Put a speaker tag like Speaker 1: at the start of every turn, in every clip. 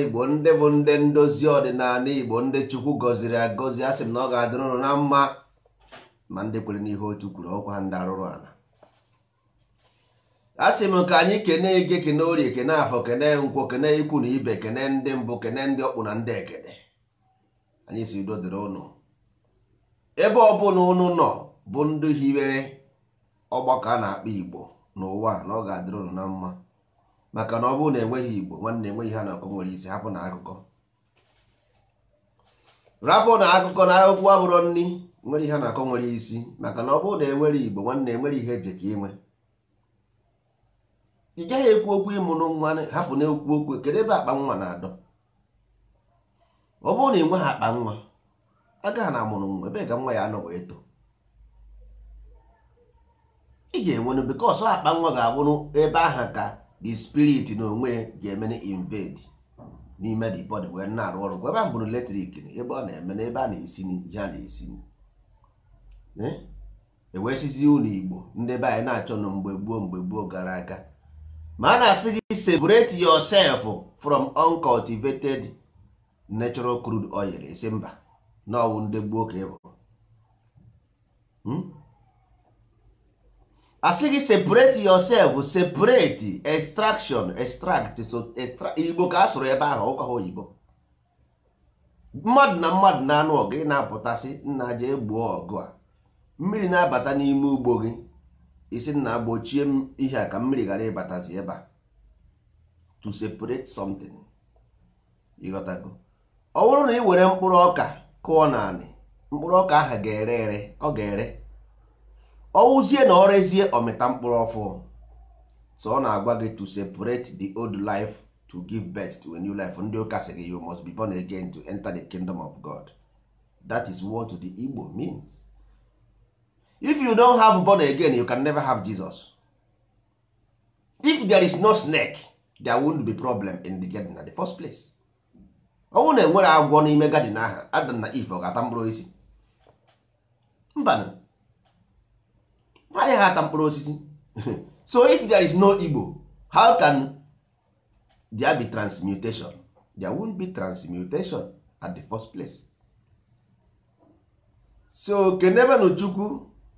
Speaker 1: igbo ndị bụ ndị ndozi ọdịnala igbo ndị chukwu gọziri agọzi a sị m na ọ ga-adịrụ ụnụ na mma ma ndị kwere n'ihe otu kwuru ọkwa ndị arụrụ ala a sị m ka anyị kene ege kene orie kene afọ kene Nkwo kene ikwu na ibe kene ndị mbụ kene ndị ọkpụ na ndị ekene anyị si udo ụnụ ebe ọbụla ụnụ nọ bụ ndị hiwere ọgbakọ a na-akpọ igbo n'ụwa na ọ ga-adịrị ụnụ na mma maka na ọ bụrụ na enweghị igbo nwanne enweghị ha na ọkụ nwere isi hapụ na akụkọ rapụ na akụkọ na akwụkwọ abụrọ nri nwere ihe na akọ nwere isi maka na ọ bụrụ na enwere igbo nwanne enwere ihe eji ka inwe ị gaghị ekwu okwu ịmụrụ nwa hapụ na ekwu okwu kedu ebe akpa nwa na-adọ ọ bụrụ na ị akpa nwa agaghị na amụrụ nwa ebe ga nwa ya anọ wee too ị ga-enwenụ bikọs akpa nwa ga-abụrụ ebe aha ka the spirit na onwe ga-eme invade n'ime the body wee na-arụ ọrụ ebe a bụrụ na ebe ọ na-eme na ebe a na-esi ihe ya na-esi ewesizi eh? e ụlọ igbo ndị be anyị na-achọ na mgbe gboo mgbe gboo gara aga ma a na-asị gị separate yourself from uncultivated natural crude oil esi mba na ọwụ ndị gboo ka ịbụ asị gị separate yourself separate extraction extract so igbo ka a sụrụ ebe ahụ ụkwa ha oyibo mmadụ na mmadụ na-anụ ọgụ ị na-apụtasị nna ji gbuo ọgụ a mmiri na-abata n'ime ugbo gị isi nna gbochie m ihe a ka mmiri ghara ịbatazi ebe a to separate something ọ bụrụ na ị were mkpụrụ ọka kụọ nanị mkpụrụ ọka ahụ ga-ere ere ọ ga-ere ọwụzie na ọrezie ọmịta mkpụrụ ọfụ so ọ na-agwa gị to separate the old life to give birth to a new life ndị ụka sị gị you must be born again to enter the kingdom of God that is what the Igbo means if you don't have born again you can never have Jesus if there is no snake there won't be problem in the garden at the first place ọnwụ na enwere agwọ n'ime garden ahụ Adam na Eve ọ ga-ata mkpụrụ isi mbanụ anyị ha ata mkpụrụ osisi so if there is no Igbo how can there be transmutation there won't be transmutation at the first place so kenebenụ Chukwu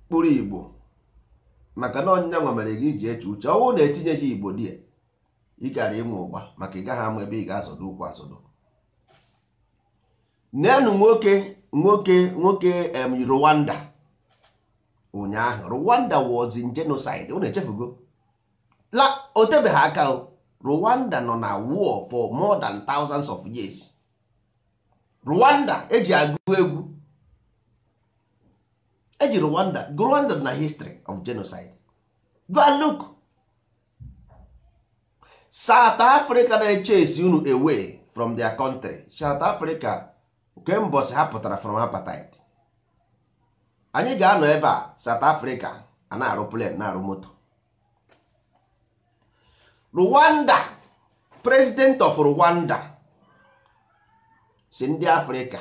Speaker 1: kpụrụ Igbo maka na ọnyịnya nwa mere gị ji eche uche ọnwụ na gị Igbo di ị gara ịmụ ụgba maka ị gaghị ama ebe ị ga-azọdụ ụkwụ azọdụ nenụ nwoke nwoke nwoke em Rwanda ụnyaahụ Rwanda was in genocide unu echefugo la otebeghị aka Rwanda nọ na war for more than thousands of years Rwanda eji agụ egwu eji Rwanda Rwanda na history of genocide go and look South Africa na-echase unu away from their country South Africa kemgbe ha pụtara from apartheid anyị ga-anọ ebe a South Africa na-arụ plen na-arụ moto Rwanda president of Rwanda si ndị Africa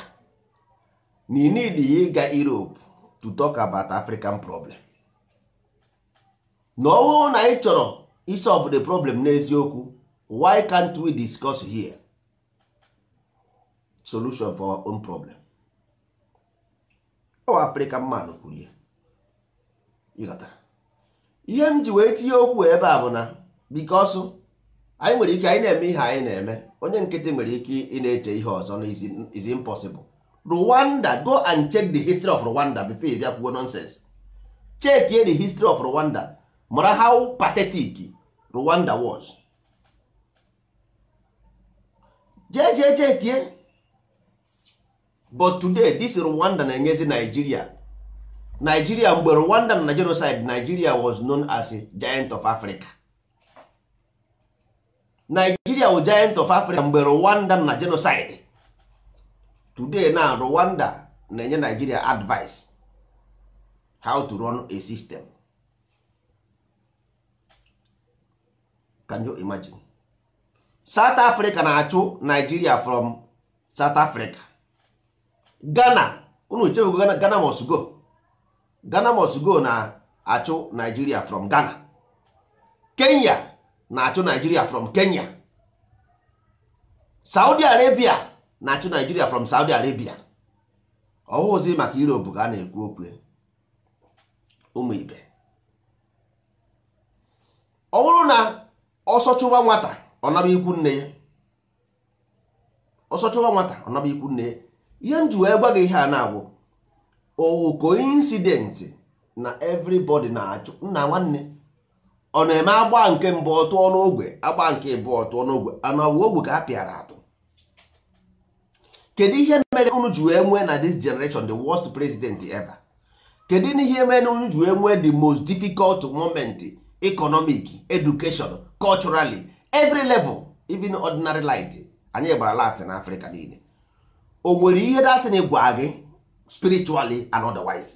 Speaker 1: na need ya ịga Europe to talk about African problem na ọhụụ na anyị chọrọ isolve the problem n'eziokwu why can't we discuss here solution for our own problem afrịkan man kwuru ya ihe m ji wee tinye okwu ebe a bụ na bikos anyị nwere ike anyị na-eme ihe anyị na-eme onye nkịtị nwere ike ị na-eche ihe ọzọ na is impossible rwanda go and check the history of rwanda before ị bịa kwuo nonsense check the history of rwanda mara how pathetic rwanda was jee jee chekie but today this rwanda na-enyezi nigeria nigeria mgbe rwanda na genocide nigeria was known as a giant of africa nigeria wụ giant of africa mgbe rwanda na genocide today na rwanda na-enye nigeria advice how to run a system can you imagine south africa na-achụ nigeria from south africa Ghana unu chewego gana Ghana must go Ghana must go na-achụ naijiria from Ghana Kenya na-achụ naijiria from Kenya Saudi Arabia na-achụ naijiria from Saudi Arabia ọhụzi maka Europe ka a na-ekwu okwu ụmụ ibe ọ bụrụ na ọsọchụwa nwata ọ ikwu nne ya ọsọchụwa nwata ikwu nne ya ihe m ji wee gwa gị ihe a na-agwụ owu koinsidenti na evrybod na-achụ nna nwanne ọ na-eme agba nke mbụ ọtụ ọnụ agba nke bụ ọtụ ọnụ ogwe ogwe ka a pịara atụ kedu ihe mere unu ji wee nwee na this generation the worst president ever kedu ihe mere unu ji wee nwee the most difficult moment economic education culturally every level even ordinary light anyị gbara last na Africa niile o nwere ihe na gwa gị spiritually and otherwise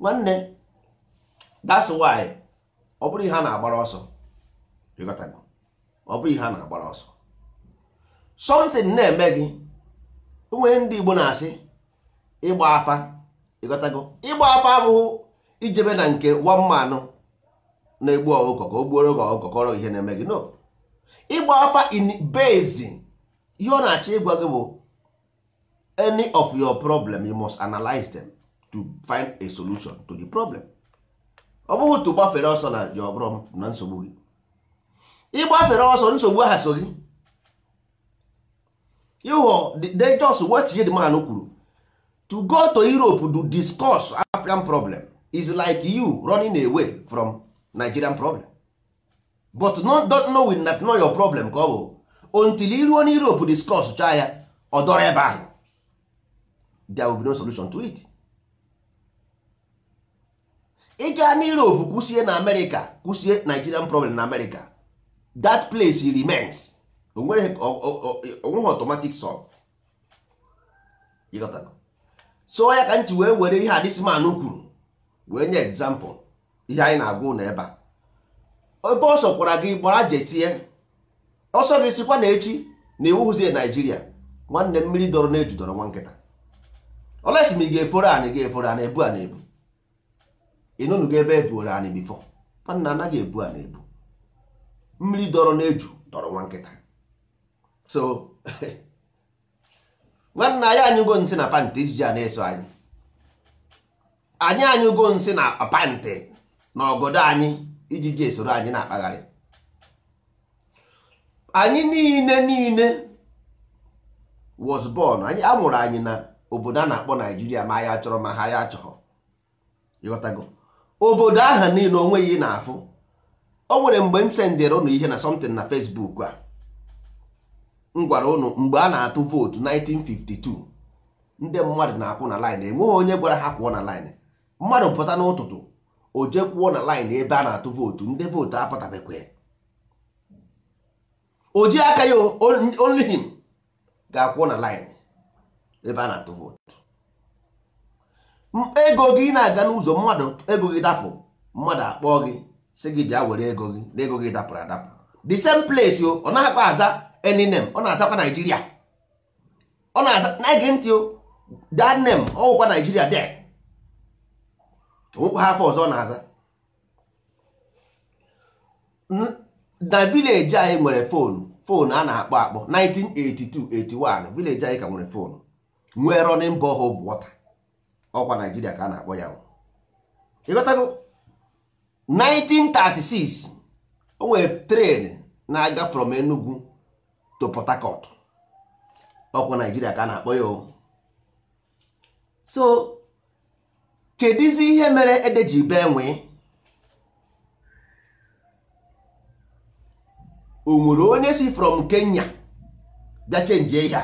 Speaker 1: nwanne that's why ọ bụrụ ihe a na-agbara ọsọ ọ bụrụ ihe a na-agbara ọsọ something na-eme gị nwee ndị Igbo na-asị ịgba afa ịghọtago ịgba afa abụghị ijebe na nke nwa mmanụ na-egbu ọgụkọ ka o gbuoro gị ọgụkọ kọrọ ihe na-eme gị no ịgba afa in basin ihe ọ na-achọ ịgwa gị bụ any of your problem you must analyze them to find a solution to the problem ọ bụghị tu gbafere ọsọ na your problem na nsogbu gị ịgbafere ọsọ nsogbu aha so gị ịghọ they just watch the kwuru to go to Europe to discuss African problem is like you running away from Nigerian problem but not don't know with that know your problem ka ọ bụ until iruo na Europe discuss chaa ya ọ dọrọ ebe ahụ there will be no solution to it. ị gaa na Europe kwụsie na America kwụsie Nigerian problem na America that place remains onweghị automatic solve so ya ka nchi wee were ihe a this man kwuru wee nye example ihe anyị na-agwa ụlọ ebe a ebe ọ sọkwara gị gbara jetie ọsọ gị sikwa na echi na iwu hụzie naijiria nwanne mmiri dọrọ na ejudọrọ nwa nkịta olesi ma ị ga-eforo anyị ga-eforo anyị ebu a na-ebu ịnụnụ gị ebe ebuoro anyị bifọ nna anaghị ebu a na-ebu mmiri dọrọ na eju dọrọ nwa nkịta so nwanna anyị anyụgo nsị na pantị ijiji a na-eso anyị anyị anyụgo nsị na pantị na ọgọdọ anyị iji ji esoro anyị na-akpagharị anyị niile niile was born anyị amụrụ anyị na obodo a na-akpọ naijiria ma ya chọrọ ma ha ya chọrọ ịghọtago obodo aha niile onweghị ị na-afụ o nwere mgbe m sendere ụnụ ihe na something na fesbuk a m gwara ụnụ mgbe a na-atụ vootu 1952 ndị mmadụ na-akwụ na laịn enweghị onye gwara ha kwụọ na laịn mmadụ pụta n'ụtụtụ o jekwuo na line ebe a na-atụ vootu ndị vootu apụtabekwe o ji aka ya only ga-akwụọ na line ebe a na-atụ vootu ego gị na-aga n'ụzọ mmadụ ego gị dapụ mmadụ akpọọ gị sị gị bịa were ego gị na ego gị dapụrụ adapụ the same place o ọ akpa aza any name ọ na-azakwa Naijiria ọ na-aza na-ege o that name ọ wụkwa Naijiria there nwekwa ha afọ ọzọ na-aza na vileji anyị nwere fonu fonu a na-akpọ akpọ 1982-81 vileji anyị ka nwere fonu nwee running borehole water ọkwa Naijiria ka a na-akpọ ya ịghọtago 1936 o nwere tren na-aga from Enugu to Port Harcourt ọkwa Naijiria ka a na-akpọ ya o so kedụzi ihe mere ede ji bee nwee o nwere onye si from Kenya bịa chenji ịhịa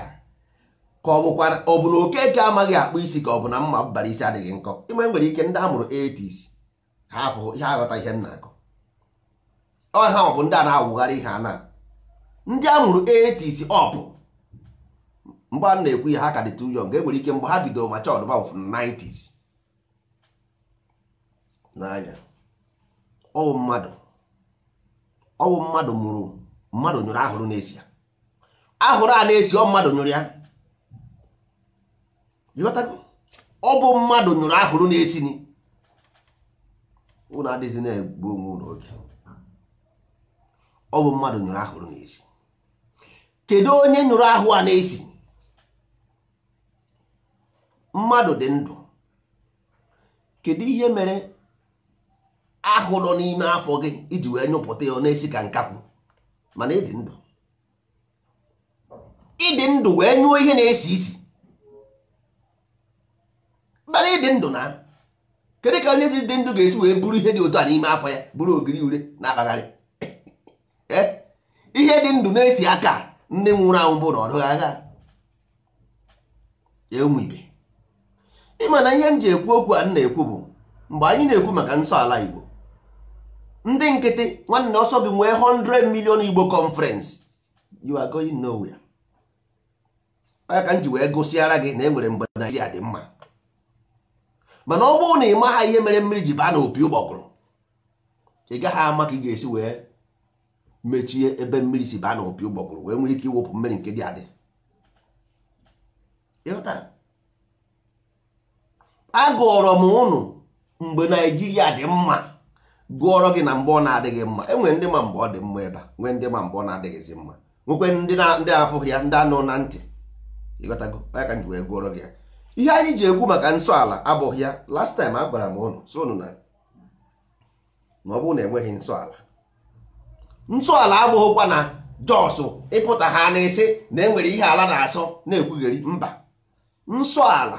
Speaker 1: ka ọ bụkwara ọ bụ na okeke amaghị akpụ isi ka ọ bụ na mma bara isi adịghị nkọ ime nwere ike ndị a mụrụ 80s ha afụ ihe aghọta ihe nna akọ ọ bụ ndị a na-awụgharị ihe a ndị a mụrụ 80s ọ bụ mgbe a na-ekwu ihe ha ka dị too young e nwere ike mgbe ha bidoro ma chọọ ọdụma 90 n'anya ọwụ mmadụ ọwụ mmadụ mụrụ mmadụ nyụrụ ahụrụ na-esi ahụrụ a na-esi ọ mmadụ nyụrụ ya ọ bụ mmadụ nyụrụ ahụrụ na-esi ụlọ ụnụ na-egbu onwe n'oge oge ọ bụ mmadụ nyụrụ ahụrụ na-esi kedu onye nyụrụ ahụ a na-esi mmadụ dị ndụ kedu ihe mere ahụ nọ n'ime afọ gị iji wee nyụpụta ya na-esi ka nkakwụ mana ịdị ndụ ịdị ndụ wee nyụọ ihe na-esi isi mana ịdị ndụ na kedu ka onye dị ndụ ga-esi wee bụrụ ihe dị otu a n'ime afọ ya bụrụ ogiri ure na-akpagharị eh? ihe dị ndụ na-esi aka ndị nwụrụ anwụ bụ na ọ agha ụmụ ibe ịma na ihe m ji ekwu okwu a m na-ekwu bụ mgbe anyị na-ekwu maka nsọ ala Igbo ndị nkịtị nwanne ọsọ gị nwee 100 million igbo conference you are going nowhere Onye ka m ji wee gụsịara gị na enwere mgbe naijiria dị mma mana ọ bụrụ na ị maha ihe mere mmiri ji baa n'opi ụgbọgụrụ ị gaghị ama ka ị ga-esi wee mechie ebe mmiri si baa n'opi ụgbọgụrụ wee nwee ike iwepụ mmiri nke dị adị Agụrọ m ụnụ mgbe naijiria dị mma gụọrọ gị na mgbe ọ na-adịghị mma enwere ndị ma mgbe ọ dị mma ebe a nwee ndị ma mgbe ọ na-adịghịzi mma nwekwe ndị na-afụghị ya ndị anụ na ntị ịghọtago onye ji wee gụọrọ gị ya ihe anyị ji egwu maka nsọ ala abụghị ya last time a gwara m ụnụ so ụnụ na ọ bụrụ na enweghị nsọ ala nsọ ala abụghịkwa na jọsụ ịpụta ha na-ese na enwere ihe ala na-asọ na-ekwugheri mba nsọ ala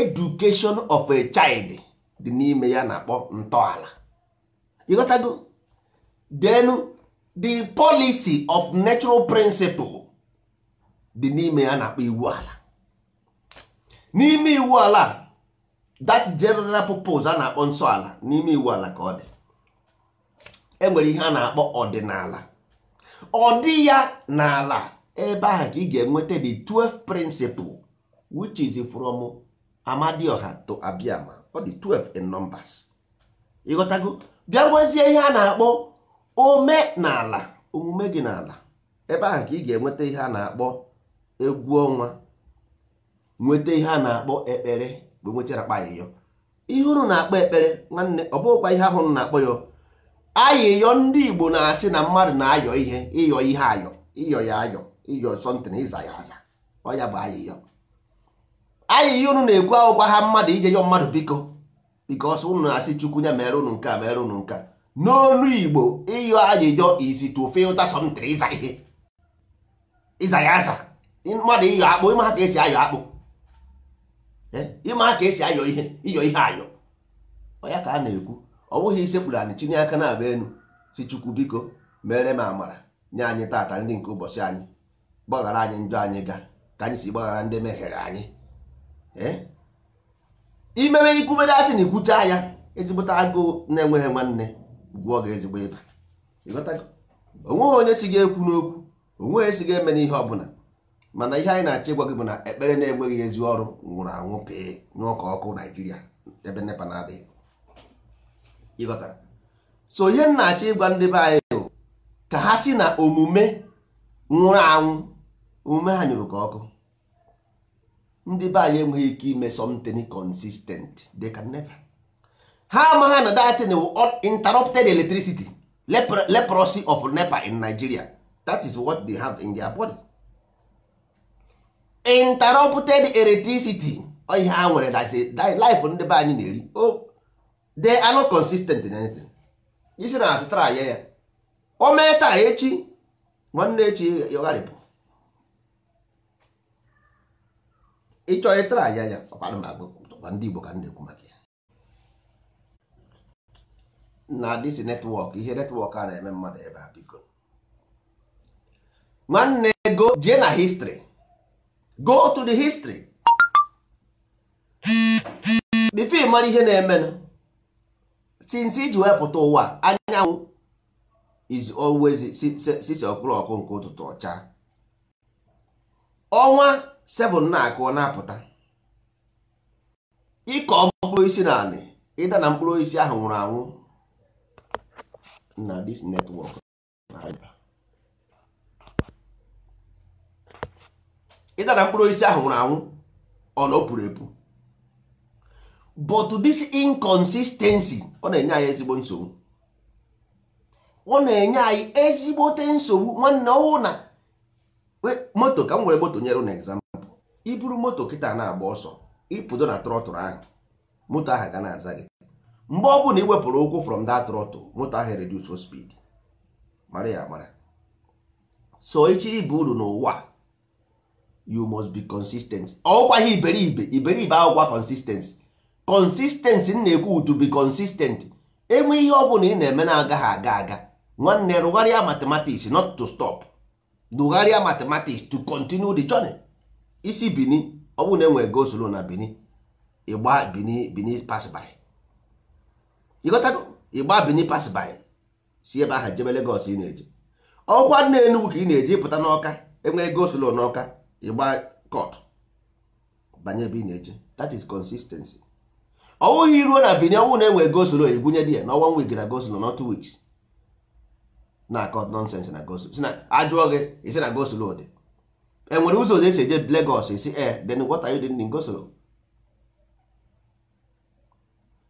Speaker 1: education of a child dị n'ime ya na-akpọ ntọala ịghọtago then the policy of natural principle dị n'ime ya na-akpọ iwu ala n'ime iwu ala that general purpose a na-akpọ ala n'ime iwu ala ka ọ dị enwere ihe a na-akpọ ọdịnala Ọdị dị ya n'ala ebe ahụ ka ị ga-enweta the 12 principle which is from Amadioha to Abiama ọ dị 12 in numbers ịghọtago bịa nwezie ihe a na-akpọ omenala omume gị n'ala ebe ahụ ka ị ga-enweta ihe a na-akpọ egwu ọnwa nweta ihe a na-akpọ ekpere bụ akpa ayịyọ ihe unu na-akpọ ekpere nwanne ọ bụghịkwa ihe ahụ na-akpọ ya ayịyọ ndị Igbo na-asị na mmadụ na-ayọ ihe ịyọ ihe ayọ ịyọ ya ayọ ịyọ sọntịn ịza ya aza ọ ya bụ ayịyọ ayịyọ unu na-ekwu akwụkwa ha mmadụ ije yọ mmadụ biko because ụnụ na-asị chukwu ya mere ụnụ nke a mere ụnụ nke a n'olu igbo ịyọ ajụjụ is to filter something ịza ihe ịza ya aza mmadụ ịyọ akpụ ịma ka esi ayọ akpụ e, ịma ka esi ayọ ihe ịyọ ihe ayọ Ọya ka a na-ekwu ọ bụghị isekpuru anyị chinye aka na-aba enu si chukwu biko mere m amara nye anyị tata ndị nke ụbọchị anyị gbaghara anyị njọ anyị ga ka anyị si gbaghara ndị meghere anyị ee imewe ikwubere atị na ikwucha ya ezigbota agụụ na-enweghị nwanne gwụọ gị ezigbo ịba onweghị onye si ga-ekwu n'okwu onweghị esi ga-eme n'ihe ọbụla mana ihe anyị na-achọ ịgwa gị bụ na ekpere na-enweghị ezi ọrụ nwụrụ anwụ pee ọkụ naijiria ebe nepa na-adịghị so ihe m na-achọ ịgwa ndị be anyị ka ha si na omume nwụrụ anwụ omume ha nyụrụ ka ọkụ ndị be anyị enweghị ike ime something consistent they can never ha amaghị na datin interrupted electricity leprosy of nepa in nigeria that is what they have in their body interrupted electricity ihe ha nwere life ndị be anyị na-eri oh, they are not consistent in anything isi na asịtara ya ya o mee taa echi nwanne echi ya ịchọ ịtara anya ya ọkwa ndị Igbo ka m na-ekwu maka ya na dịsi netwọk ihe netwọk a na-eme mmadụ ebe a biko nwanne go jee na histri go to the history bifo mara ihe na-emenụ since iji wepụta ụwa anyanwụ is always sisi ọkpụrụ ọkụ nke ụtụtụ ọcha ọnwa 7 na-akụ na-apụta ịkọ mkpụrụ isi na anị ịda na mkpụrụ isi ahụ nwụrụ anwụ na dis netwọk ịda na mkpụrụ isi ahụ nwụrụ anwụ ọ na opuru puru epu but this inconsistency ọ na-enye anyị ezigbo nsogbu ọ na-enye anyị ezigbote nsogbu nwanne ọwụ na moto ka m were moto nyere na iburu moto kịta na-agba ọsọ ịpụdo na trọtụl ahụ moto ahụ ga na-aza gị mgbe ọ bụla ị wepụrụ ụkwụ from that trọtụ moto ahụ reduce speed mara ya mara so echi ibe uru n'ụwa you must be consistent ọgwaghị iberibe iberibe agwụgwa consistency consistency na-ekwu to be consistent enwe ihe ọ bụla ị na-eme na-agaghị aga aga nwanne rụgharịa matematiks not to stop rụgharịa mathematics to continue the journey isi bini ọ bụrụ na enwere goslo na bini ịgba bini bini pasby ịghọtago ịgba bini pasby si ebe ahụ jebe legos ị na-eje ọkwa nna enugwu ka ị na-eje ịpụta n'ọka enwere goslo n'ọka ịgba kọt banye ebe ị na-eje that is consistency ọ bụghị ruo na bini ọ bụrụ na enwere goslo egwunye di ya na ọnwa week na goslo na two weeks na akọt nonsens na goslo si na ajụọ gị isi na goslo dị enwere ụzọ ụzọ esi eje Lagos esi ee eh, then what are dị ndị Ngosoro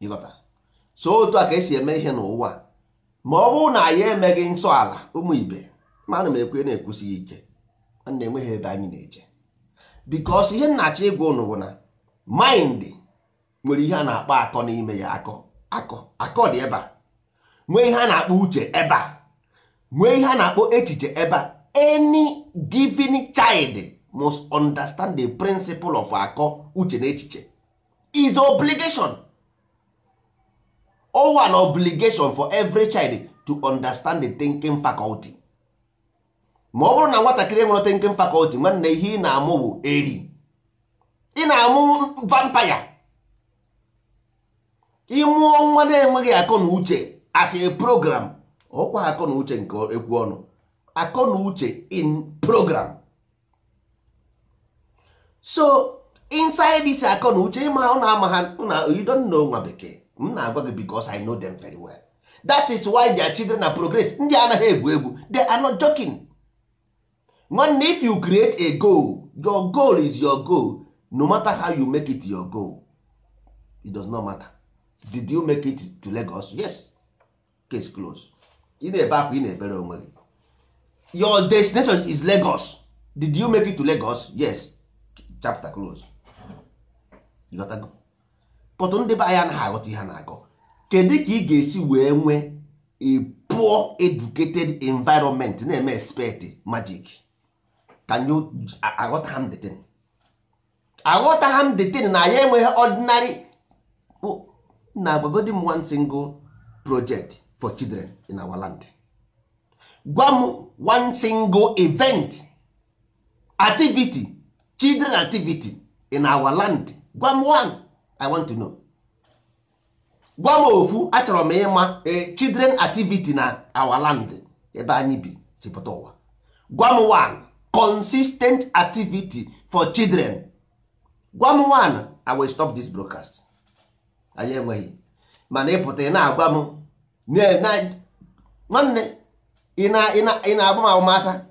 Speaker 1: ịghọta so otu a ka esi eme ihe n'ụwa ma ọ bụrụ na anyị emeghị nsọala ụmụ ibe mana m ekwe na-ekwusighị ike na enweghị ebe anyị na-eje because ihe nnachi ịgwa ụnụ bụ na maịndị nwere ihe a na-akpọ akọ n'ime ya akọ akọ akọ dị ebe a nwee ihe a na-akpọ uche ebe a nwee ihe a na-akpọ echiche ebe a any given child must understand the principle of akọ uche na echiche is obligation wa an obligation for every child to understand the thinking faculty ma ọ bụrụ na nwatakịrị nwere thinking faculty nwanne ihe ị na-amụ bụ eri ị na-amụ vampire ịmụọ nwa na-enweghị akọ na uche as a program ọkwa akọ na uche nke ekwu ọnụ akọ uche in program so inside this akọ uche ịma ọ na-ama ha na you don't know nwa bekee m na-agwa gị because I know them very well that is why their children na progress ndị anaghị egwu egwu they are not joking nwanne if you create a goal your goal is your goal no matter how you make it your goal it does not matter did you make it to Lagos yes case closed ị na-ebe akwa ị na-ebere onwe gị your destination is Lagos did you make it to Lagos yes chapter close pọtụ ndị be anya naghị aghọta ihe na-akọ kedu ka ị ga-esi wee nwee a poor educated environment na-eme expect magic can you aghọta ha m detin aghọta ha m detin na ya enweghị ordinary na agwagodi m one single project for children in our land gwa m one single event activity children activity in our land gwa m one i want to know gwa m ofu achọrọ m ịma eh, children activity na our land ebe anyị bi si pụta ụwa gwa m one consistent activity for children gwa m one i will stop this broadcast anyị enweghị mana ịpụta ị na-agwa m nwanne ị na-agba m agbamasa,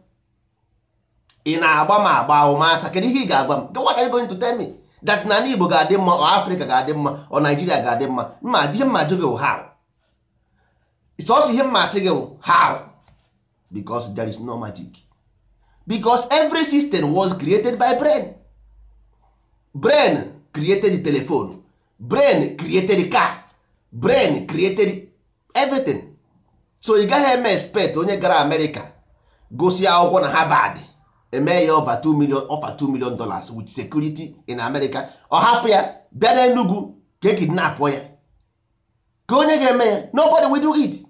Speaker 1: ị na-agba m agba kedu ihe ị ga-agwa m what are you going to tell me that na Igbo ga-adị mma ọ Afrịka ga-adị mma ọ Naijiria ga-adị mma mma ihe mma jụ gị also sọsọ ihe mma asị gị how because there is no magic because every system was created by brain brain created telephone brain created car brain created everything so ị gaghị eme expect onye gara amerịka gosi akwụkwọ na harvard eme ya over 2 million over 2 million dollars with security in america ọ hapụ ya bịa na enugwu ka e kidnapụ ya ka onye ga-eme ya nobody will do it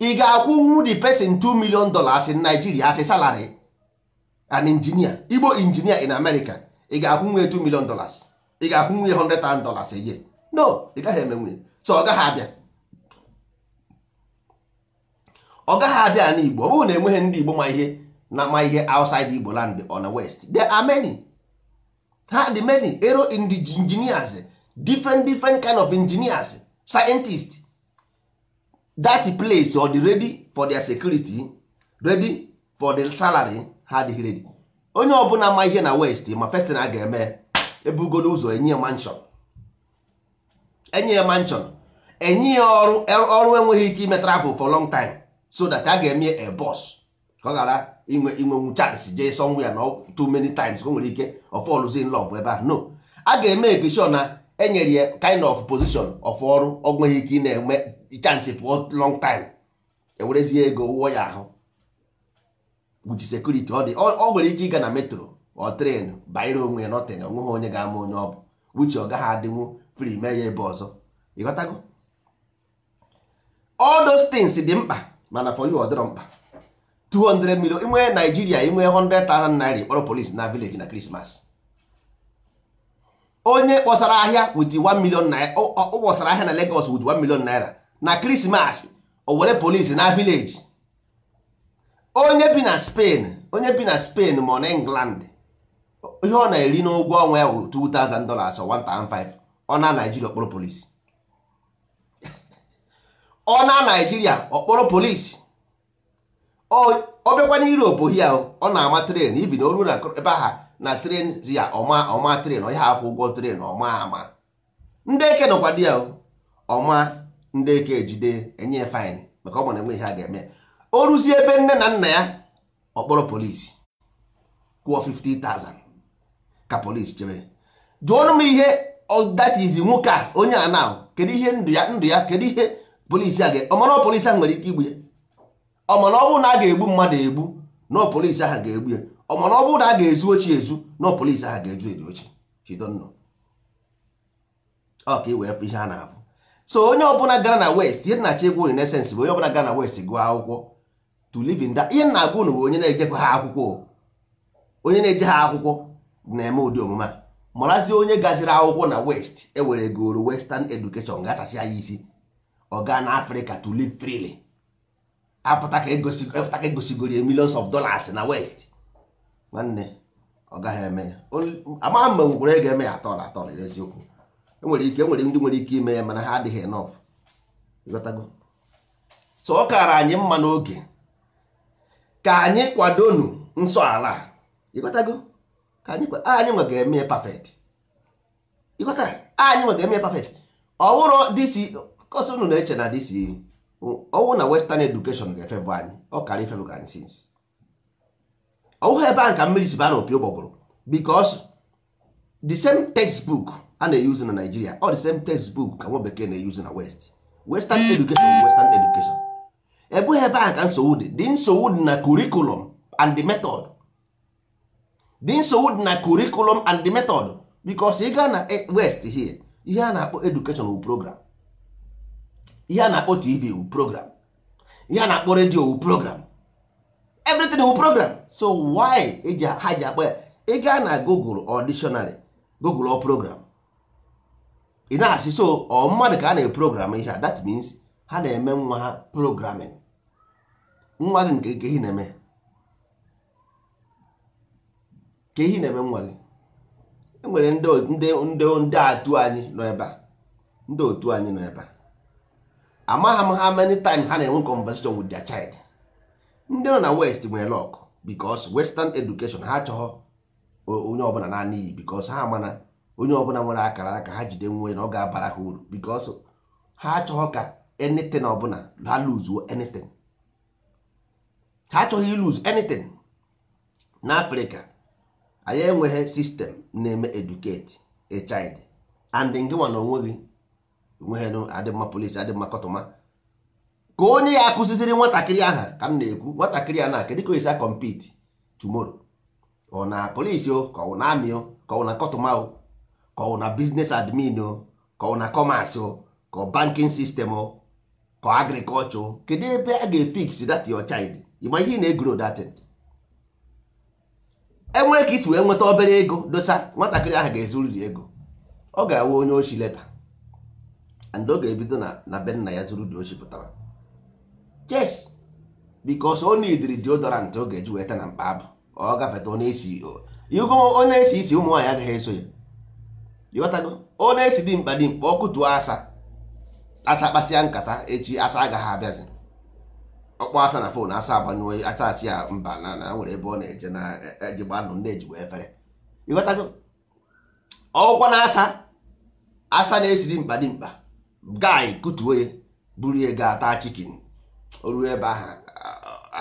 Speaker 1: ị ga-akwụnwu the person 2 million dollars in nigeria asị a salary an engineer igbo injinia in america ị ga-akwụnwu ya 2 million dollars ị ga-akwụnwu ya 100,000 dollars a year no ị gaghị emenwu ya so ọ gaghị abịa ọ gaghị abịa ala igbo ọ bụrụ na enweghị ndị igbo ma ihe na ma ihe outside igbo land on the west there are many ha dị many ero engineers different different kind of engineers scientists that place ọ dị ready for their security ready for the salary ha adịghị ready onye ọbụla ma ihe na west ma first na ga-eme ebugoro ụzọ enye ya enye ya enye ya ọrụ ọrụ enweghị ike ime travel for long time so that a ga-eme a bọs ka ọ ghara inwe inwenwu chance jee sọnwụ ya na too many times o nwere ike of all in love ebe a no a ga-eme ekeshon na enyere ya kind of position of ọrụ ọ nweghị ike ị na-enwe chance pụọ long time ewerezie ego wụọ ya ahụ with security ọ dị ọ nwere ike ịga na metro ọ tren banyere onwe ya nọtịn onweghị onye ga-ama onye ọ bụ wuchi ọ gaghị adịnwu fri mee ya ebe ọzọ ịghọtago all those things dị mkpa mana for you ọ dịrọ mkpa 200 million inwe Nigeria inwe 100,000 naira kpọrọ polis na village na Christmas onye kpọsara ahịa with 1 million naira ọ kpọsara ahịa na Lagos with 1 million naira na Christmas o were polis na village onye bi na Spain onye bi na Spain ma ọ na England ihe ọ na-eri n'ụgwọ ọnwa ya wuru 2000 dollars or 1005 ọ na Naijiria kpọrọ polisi ọ na naijiria ọ kpọrọ polisi ọ bịakwa na europe ahụ ọ na-ama tren ibi na oru na ebe aha na tren ya ọma ọma tren ọ ya akwụ ụgwọ tren ọma ama ndị eke nọkwa di ya ọma ndị eke ejide enye faịn maka ọ bụ na enwe ihe a ga-eme o ruzie ebe nne na nna ya ọ kpọrọ polisi kwụọ 50,000 ka polisi chebe jụọnụ m ihe ọ is nwoke a onye a na kedu ihe ndụ ya ndụ ya kedu ihe polisi a ọmara polisi ahụ nwere ike igbu ya ọmara na a ga-egbu mmadụ egbu na polisi ahụ ga-egbu ya ọmara ọ na a ga-ezu ochi ezu na polisi ahụ ga-eju eju ochi chidonnọ ọ ka e wee fụ ihe a na-abụ so onye ọbụla gara na west ihe na-achọ egwu bụ onye ọbụla gara na west gụọ akwụkwọ to live in ihe na-agụ bụ onye na-ejekwa ha akwụkwọ onye na-eje ha akwụkwọ na-eme ụdị omume a marazie onye gaziri akwụkwọ na west ewere goro western education ga-achasị isi ọ gaa na afrịka to live freely apụta ka egosigoro e millions of dollars na west nwanne ọ gaghị eme ama mgbe e nwere ga-eme ya atọl atọl n'eziokwu enwere ike enwere ndị nwere ike ime ya mana ha adịghị enough ịghọtago so ọ kaara anyị mma n'oge ka anyị kwadonu nsọ ala ịghọtago ka anyị anyị eme perfect ịghọtara anyị nwe eme pafet ọ disi kọsi unu na-eche na dis na western education ga-efebụ anyị ọkara karịa ifebụ ka anyị sinsi ọwụghị ebe ahụ ka mmiri si baa na opi ụgbọgụrụ bikos the same textbook a na-eyuzu na Nigeria ọ the same textbook ka nwa bekee na-eyuzu na west western education western education ebughị ebe a ka nsogbu dị dị nsogbu dị na curriculum and the method dị nsogbu dị na curriculum and the method bikos ị gaa na west here ihe a na-akpọ education program ihe a na-akpọ tv wu program ihe a na-akpọ redio wu program everything wu program so why e ha ji akpọ ya ị na google or google program ị na-asị so ọ mmadụ ka a na-eprogram ihe a that means ha na-eme nwa ha programming nwa gị nke ke na-eme ka ihe na-eme nwa gị enwere ndị ndị atụ anyị nọ ebe a ndị otu anyị nọ ebe a amagha m ha many time ha na-enwe conversation with their child ndị nọ na west nwere lọk because western education ha achọghọ onye ọbụla naanị iyi because ha mana onye ọbụla nwere akara aka ha jide nwe na ọ ga-abara ha uru because ha achọghọ ka anything ọbụla ha lose anything ha achọghị ilose anything n'afrịka anyị enweghị sistem na-eme educate a child and nke na gị onweghị adị polisi adị kọtụma ka onye ya akụziziri nwatakịrị aha ka m na-ekwu nwatakịrị a na-aka dịka esi akọmpiti tomorrow ọ na polisi o ka ọ na amị o ka ọ na kọtụma o ka ọ na biznes admin o ka ọ na kọmasị kọ ka bankin sistem o ka agrikọlchọ kedu ebe a ga-efiksi dat yo child ịma ihe na-egro datin enwere ka isi wee nweta obere ego dosa nwatakịrị ahụ ga-ezuriri ego ọ ga awụ onye oshi leta and ọ ga-ebido na na be nna ya zuru dị ochi pụtara yes because ọ na-ediri deodorant ọ ga-eji weta na mkpa abụ ọ gafeta ọ na-esi esi isi ụmụ nwaanyị agaghị eso ya ịghọtago ọ na-esi dị mkpa dị mkpa ọkụ tụọ asa asa kpasịa nkata echi asa agaghị abịazi ọkpọ asa na fon asa agbanyụọ asa asị ya mba na na nwere ebe ọ na-eje na e, e, ejigba ndụ ndị ejigbo efere ịghọtago ọgwụkwa na asa asa na-esi dị mkpa dị mkpa Gai kutuo ya buru ya gaa taa chikin oruo ebe ahụ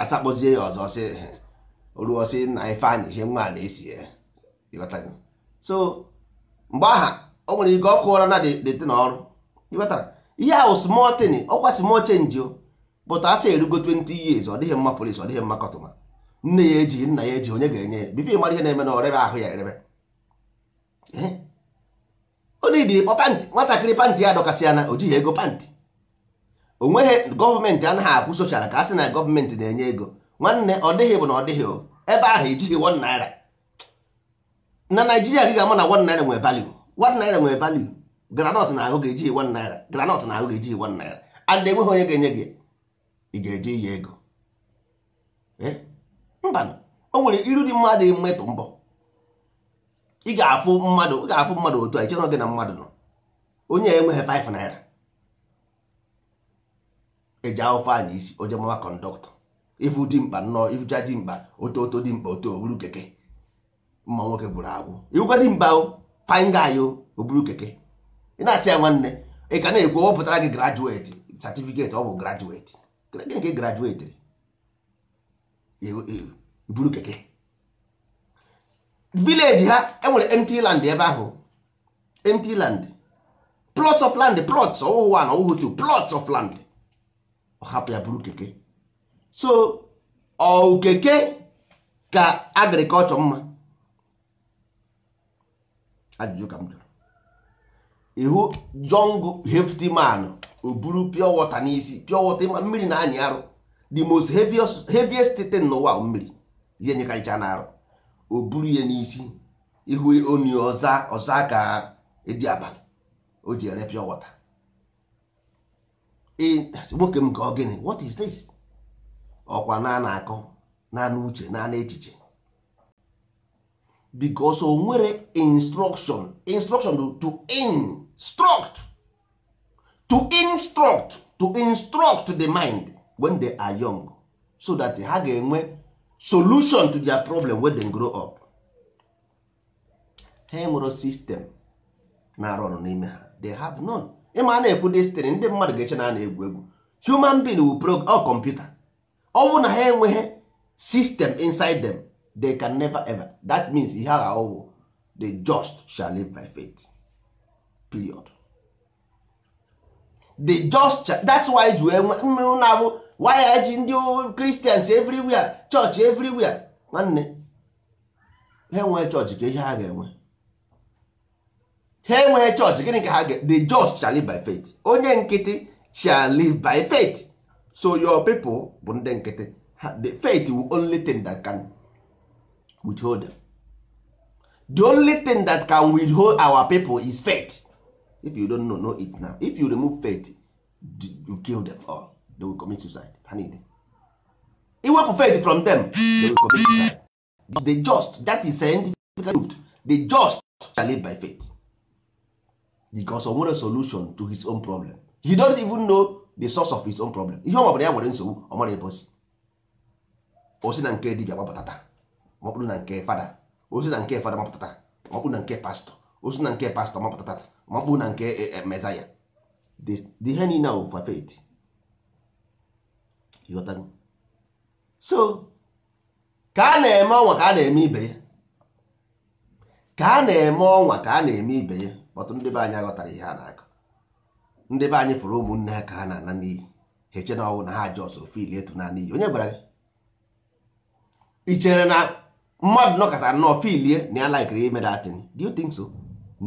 Speaker 1: asakpozie ya ọzọ sị oruo sị na ife anyị ihe nwa na-esi ya e, ịghọtago so mgbe aha o nwere ike ọkụ ụra na dete na ọrụ ịghọtara ihe ahụ small thing ọkwa small change o bụta asị erugo 20 years ọ dịghị mma polisi ọ dịghị mma kọtụma nne ya ejighị nna ya eji onye ga-enye ya bifo ịmara ihe na-eme na ọrebe ahụ ya erebe onidiri kpọ pantị nwatakịrị pantị ya dọkasịa na o jighị ego pantị onweghị gọọmenti anaghị akwụ sochara ka a sị na gọọmenti na-enye ego nwanne ọ dịghị bụ na ọ dịghị ebe ahụ ejighị wọn naira na naijiria gị ga-ama na wọn naira nwe value wọn naira nwere value granọt na ahụ ga-ejighị wọn naira granọt na ahụ ga-ejighị wọn naira and enweghị onye ga-enye gị ị ga-eji iyi ego eh? mba o nwere iru dị mmadụ mmetụ mbọ ị ga-afụ mmadụ ị ga-afụ mmadụ otu a ichere gị na mmadụ nọ onye enweghị 5 naira eji ahụfe anyị isi onye mawa kọndọktọ ifu dị mkpa nnọọ ifucha dị mkpa oto oto dị mkpa oto oburu keke mma nwoke bụrụ agwụ iwukwa dị mba faingaị oburu keke ị na-asị ya nwanne ị ka na-ekwu wepụtara gị grajueti satifiketi ọ bụ grajueti gịnị ka ị grajuetiri iburu keke village ha enwere empty land ebe ahụ empty land plots of land plots ọwụhụ one ọwụhụ two plots of land ọ hapụ ya bụrụ keke so ọ keke ka agriculture mma ajụjụ ka m jụrụ ihu jong hefty man o pure water n'isi pure water ma mmiri na anyị arụ the most heaviest, heaviest thing n'ụwa mmiri ihe nyekarịcha na arụ o buru ya n'isi ihu oni ọza ọza ka edi abalị o ji ere pịọ wọta nwoke m ka ọ gịnị what is this ọkwa na na-akọ naanị uche naanị echiche because o nwere instruction instruction to instruct to instruct to instruct the mind when they are young so that ha ga-enwe solution to their problem wey dem grow up ha enwero sistem na-arụ ọrụ n'ime ha they have none ịma a na-ekwu destiny ndị mmadụ ga-eche na a na-egwu egwu human being will prog or computer ọ bụrụ na ha enweghị system inside them they can never ever that means ihe agha ọwụ the just shall live by faith period the just shall, that's why ju wee mmiri na-abụ waya eji ndị kristians everywhere chọọchị everywhere nwanne ha enweghị chọọchị ka ihe ha ga-enwe ha enweghị chọọchị gịnị ka ha ga the just shall live by faith onye nkịtị shall live by faith so your people bụ ndị nkịtị the faith will only thing that can withhold them the only thing that can withhold our people is faith if you don't know, know it now if you remove faith you kill them all they will commit suicide ha niile iwepụ faith from them they will commit suicide they just that is scientific proved they just shall live by faith because o nwere solution to his own problem he don't even know the source of his own problem ihe ọ mabụrụ ya nwere nsogbu ọ mara ebe osi osi na nke dibia gbapụtata maọbụrụ na nke fada osi na nke fada mapụtata maọbụrụ na nke pastọ osi na nke pastọ mapụtata maọbụrụ na nke mezaya ihe niile bụ for faith Ịghọtago? so ka a na-eme ọnwa ka a na-eme ibe ya ka a na-eme ọnwa ka a na-eme ibe ya ọtụtụ ndị be anyị aghọtara ihe a na-akọ ndị be anyị fụrụ ụmụnne ha ka ha na-ana n'iyi ha eche na ọnwụ na ha jọsụrụ fil etu na n'iyi onye gwara gị ị chere na mmadụ nọkọtara nnọọ filie na ya laikiri ime datin do you think so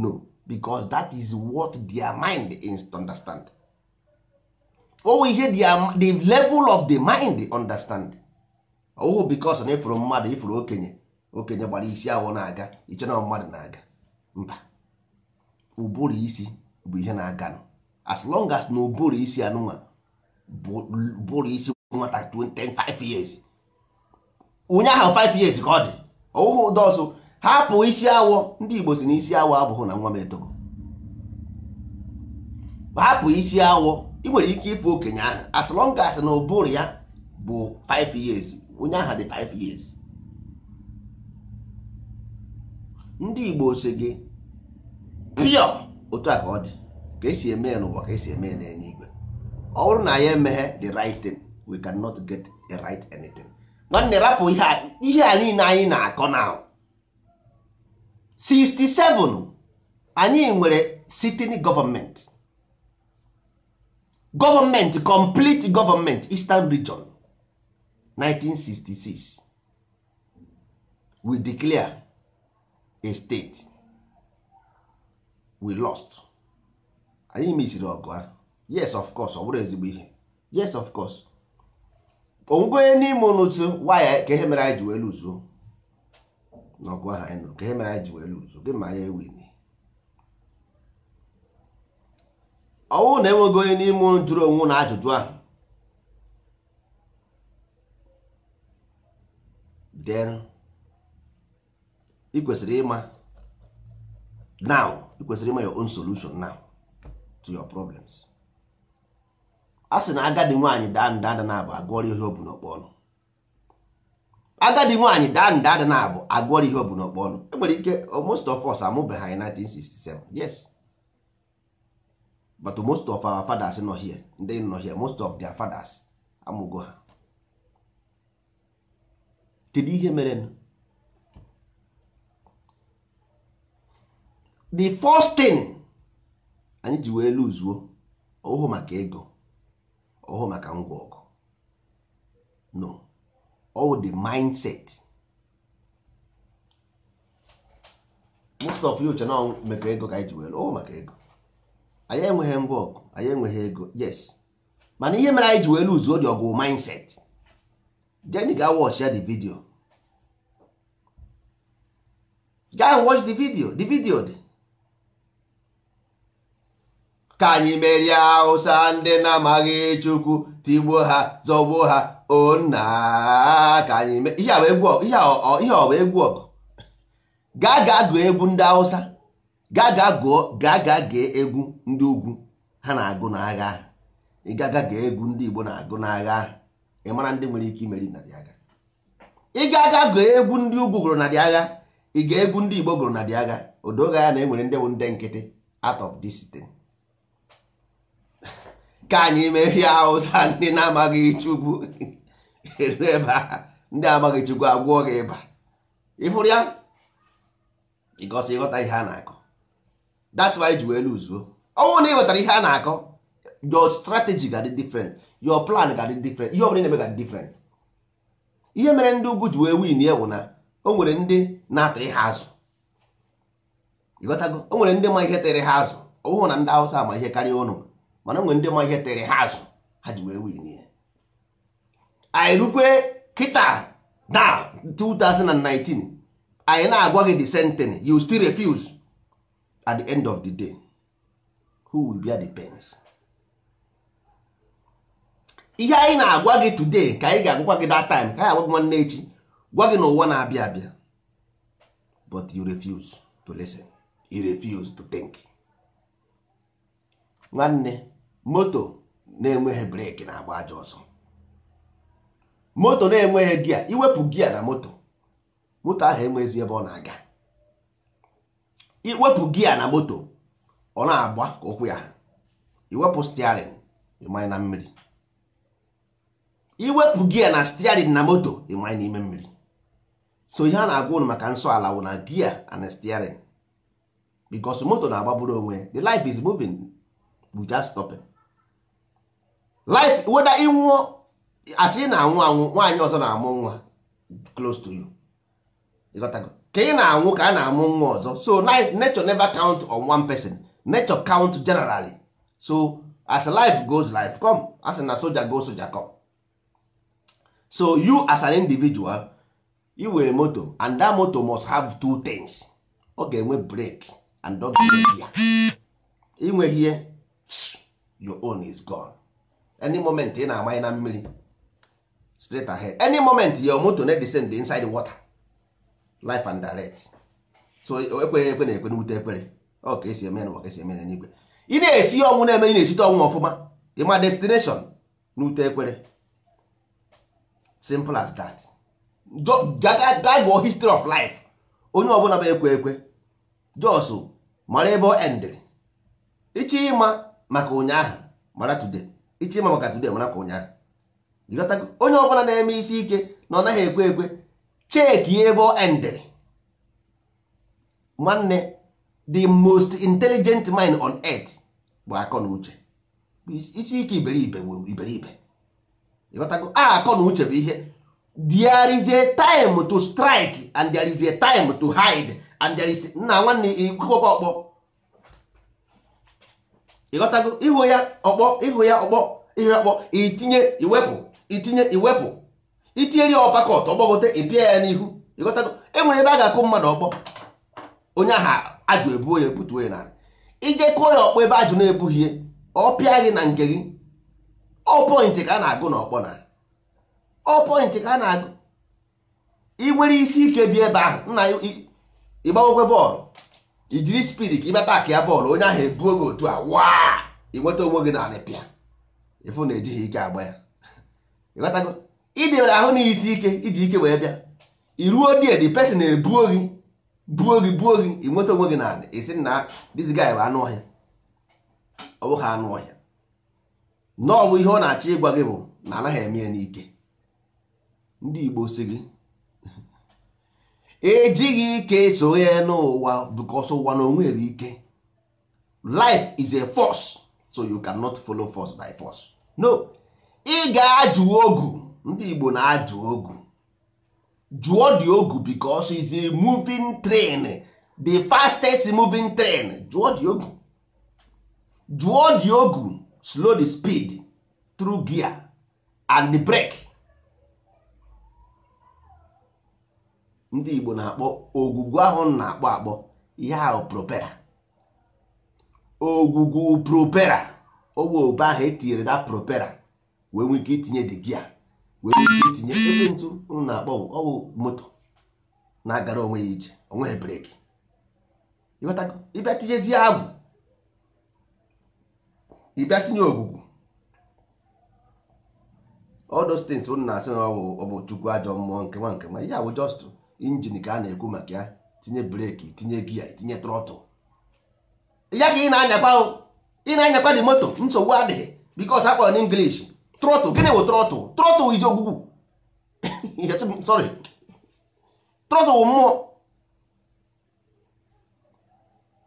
Speaker 1: no because that is what their mind is to understand owe ihe um, the level of the mind understand ọwụ oh, because na ifuru mmadụ ifuru okenye okenye gbara isi awọ na-aga iche na mmadụ na-aga mba ụbụrụ isi bụ ihe na-aga as long as na ụbụrụ isi anụnwa bụrụ isi nwata 25 years
Speaker 2: onye ahụ 5 years ka
Speaker 1: ọ dị ọwụhụ ụdọọzụ hapụ isi awọ ndị Igbo si na isi awọ abụghị na nwa m etogo hapụ isi awọ ị nwere ike ịfụ okenye ahụ as long as na ụbụrụ ya bụ 5 years onye aha dị 5 years ndị Igbo si gị pịọ otu a ka ọ dị ka esi eme ya n'ụwa ka esi eme ya enye igwe ọ bụrụ na ya emeghe the right thing we cannot get a right anything nwanne rapụ ihe a niile anyị na-akọ na 67 anyị nwere sitting gọọmenti gọọmenti complete gọọmenti eastern region 1966 we declare a state we lost anyị misiri ọgụ a yes of course ọ bụrụ ezigbo ihe yes of course onwego onye n'ime ụnụtụ waya ka ihe mere anyị ji wee luzuo n'ọgụ ahụ anyị nụrụ ka ihe mere anyị ji wee luzuo gị ma anyị ewin ọ bụrụ na enweghị onye n'ime unu jụrụ onwe na ajụjụ ahụ then ị kwesịrị ịma now ị kwesịrị ịma your own solution now to your problems a na agadi nwaanyị daa nda ada na-abụ agụọrọ ihe obu n'ọkpọ ọnụ agadi nwaanyị daa nda ada na-abụ agụọrọ ihe obu n'ọkpọ ọnụ enwere ike most of us amụbeghị anyị 1967 yes but most of our fathers nọ here ndị nọ here most of their fathers amụgo ha kedu ihe mere the first thing anyị ji wee luzuo ọhụụ maka ego ọhụụ maka ngwa ọgụ no all the mindset most of you chọ na mekọ ego ka anyị ji wee lụọ maka ego anyị enweghị ngwa ọgụ anyị enweghị ego yes mana ihe mere anyị ji wee luzuo dị ọgụ mindset jeni ga watch ya the video gaa watch the video the video dị ka anyị merie awụsa ndị na-amaghị chukwu tigbuo ha zọgbuo ha onna ka anyị ihe ọ bụ egwu ọgụ gaa gaa gụọ egwu ndị awụsa. gaa gaa gee egwu ndị ugwu ha na-agụ n'agha ahụ ịgaga gee egwu ndị Igbo na-agụ n'agha ahụ ị mara ndị nwere ike imeri narị agha ịgaga gee egwu ndị ugwu gụrụ narị agha ị ga egwu ndị Igbo gụrụ narị agha odoga ya na enwere ndị bụ ndị nkịtị out of this thing ka anyị mehie Hausa ndị na-amaghị Chukwu eru ebe ndị amaghị Chukwu agwụọ gị ịba ịfụrụ ya ịgosi ịghọta ihe a na-akụ that's why ji wee luzuo ọnwụ na ị wetara ihe a na-akọ your strategy ga di different your plan ga di different ihe ọbụla na-eme ga di different ihe mere ndị ugwu ji wee win ya na o nwere ndị na-atụ ihe azụ ịghọtago o nwere ndị ma ihe tere ha azụ ọ na ndị Hausa ma ihe karịa ụnụ mana o nwere ndị ma ihe tere ha azụ ha ji wee win ya anyị rukwe kịta na 2019 anyị na-agwa gị the sentence you still refuse at the end of the day who will bear the pains ihe anyị na-agwa gị today ka anyị ga-agwakwa gị that time ka anyị agwa gị nwanne echi gwa gị na ụwa na-abịa abịa but you refuse to listen you refuse to think nwanne moto na-enweghị breki na-agba aja ọsọ moto na-enweghị gia iwepụ gia na moto moto ahụ enweghịzi ebe ọ na-aga iwepụ gia na moto ọ na-agba ka ụkwụ ya iwepụ stiarin ịmanye na mmiri iwepụ gia na stiarin na moto ịmanye n'ime mmiri so ihe a na-agwa ụnụ maka nsọ ala wụ na gia and stiarin because moto na bụrụ onwe the life is moving we just stopping life weda ịnwụọ asị na anwụ anwụ nwaanyị ọzọ na-amụ nwa close to you ịghọtago ka ị na-anwụ ka a na-amụ nwa ọzọ so nature never count on one person nature count generally so as life goes life come as na soja go soja come so you as an individual you were moto and that moto must have two things ọ ga-enwe brake and ọ ga-enwe ya ihe your own is gone any moment ị na-amanye na mmiri straight ahead any moment your moto na dey inside the water life and direct so ekweghị ekwe na-ekwe n'ute ekpere ọ ka esi eme n'ụwa ka esi eme n'igwe ị na-esi ọnwụ na-eme na-esite ọnwụ ọfụma ịma destination n'ute ekpere simple as that dagbo history of life onye ọbụla bụ ekwe ekwe jos mara ebe ọ endịrị ịchọ ịma maka ụnyaahụ mara today ịchọ ịma maka today mara ka ụnyaahụ onye ọbụla na-eme isi ike na ọ naghị ekwe ekwe cheki ebe ọ endịrị nwanne the most intelligent mind on earth bụ akọ na uche isi ike iberibe iberibe ịghọtago a ah, akọ na uche bụ ihe there is a time to strike and there is a time to hide and there is nna nwanne ikwekwa ọkpọ ịghọtago ihu ya ọkpọ ihu ya ọkpọ ihu ya ọkpọ itinye iwepụ itinye iwepụ itinyere ya ọpakọt ọgbọgote ịpịa ya n'ihu ịghọtago enwere ebe a ga-akụ mmadụ ọgbọ onye aha ajụ ebuo ya ebutuo ya n'ala ije kụọ ya ọkpọ ebe ajụ na-ebughị ọ pịa gị na nke gị ọ ka a na-agụ na ọkpọ na ka a na-agụ ị isi ike bi ebe ahụ nna ịgbawokwe bọọlụ ijiri spid ka ịbata aka ya bọọlụ onye ahụ ebuo gị otu a waa ịnweta onwe gị na pịa ịfụ na ejighị ike agba ya ịghọtago ịdịbere ahụ na isi ike iji ike wee bịa iruo die the person ebuo gị buo gị buo gị inweta onwe gị na isi na this gị bụ anụ ọhịa ọ bụghị anụ ọhịa na ọ bụ ihe ọ na-achọ ịgwa gị bụ na anaghị eme ya n'ike ndị Igbo si gị ejighị ike ya n'ụwa bikos ụwa na onwe nwere ike life is a force so you cannot follow force by force no ị ga-ajụ ogu ndị Igbo na-ajụ ogu jụọ dị ogu because is a moving train the fastest moving train jụọ dị ogu jụọ dị ogu slow the speed through gear and the brake ndị Igbo na-akpọ ogwugwu ahụ na-akpọ akpọ ihe ahụ propera ogwugwu propera owe obe ahụ etinyere na propera wee nwee ike itinye dị gia wee tinye ebe ntụ unu na-akpọ ọwụ moto na-agara onwe ya ije onwe ya breki ịbịa tinyezie agwụ ịbịa tinye ogwugwu all those things unu na-asị na ọ bụ chukwu ajọ mmụọ nke ma nke ma ihe bụ just injin ka a na-ekwu maka ya tinye breki tinye gia tinye trọtụ ya ka ị na-anyakwa ị na-anyakwa dị moto nsogbu adịghị because akpọrọ na trọtụ gịnị bụ trọtụ. trọtụl ije ogwugwu sorry trọtụl mmụọ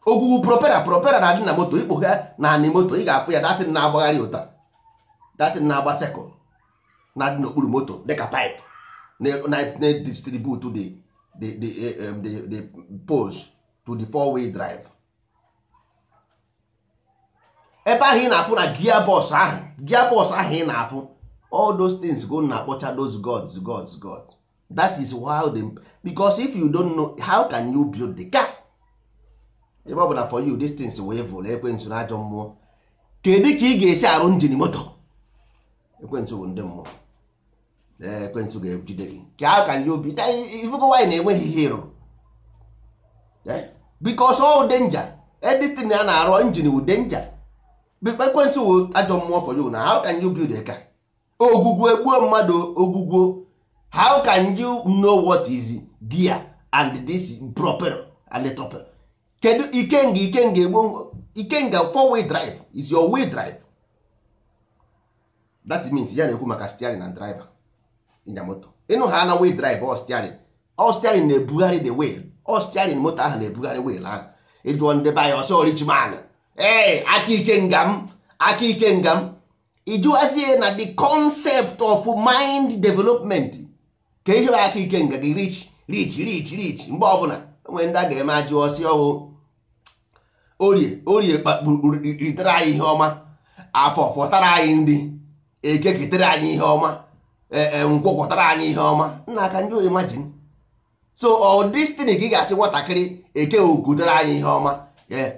Speaker 1: ogwugwu propera propera na-adị na moto ikpo ha na moto ị ga-afụ ya datin na-agbagharị ụta datin na-agba sekụl na-adị n'okpuru moto dịka pipe na-edistribute the di di um, the poles to the four way drive ebe ahụ ị na-afụ na gia bọs ahụ gia bọs ahụ ị na-afụ all those things go na akpọcha those gods gods god that is how they because if you don't know how can you build the car ebe ọ bụ na for you these things wee vụrụ ekwensu na ajọ mmụọ kedu ka ị ga-esi arụ njin moto ekwensu bụ ndị mmụọ ekwensu ga-ejide gị ka how can you be ifugo wanyị na-enweghị ihe ịrụ because all danger editin a na-arụ njin wu danger ekwensu wu ajọ mmụọ for you na how can you build a car ogwugwu egbuo mmadụ ogwugwu how can you know what is dia and this proper and proper kedu ikenga ikenga egbo ikenga four way drive is your way drive that means ya na-ekwu maka steering and driver in the motor ịnụ ha na way drive or steering or steering na-ebugharị the wheel or steering moto ahụ na-ebugharị wheel ahụ ịjụọ ndị be anyị ọsọ man ee aka ikenga m aka ikenga m ịjụwazie na the concept of mind development ka ihe aka ike nga gị rich rich rich rich mgbe ọbụla onwe ndị a ga-eme ajụ ọsị ọwụ orie orie ritere anyị ihe ọma afọ fọtara anyị ndị eke ketere anyị ihe ọma e, e, nkwọkọtara anyị ihe ọma nna aka ndị imagine so ọ destiny ka ị ga-asị nwatakịrị eke ogutere anyị ihe ọma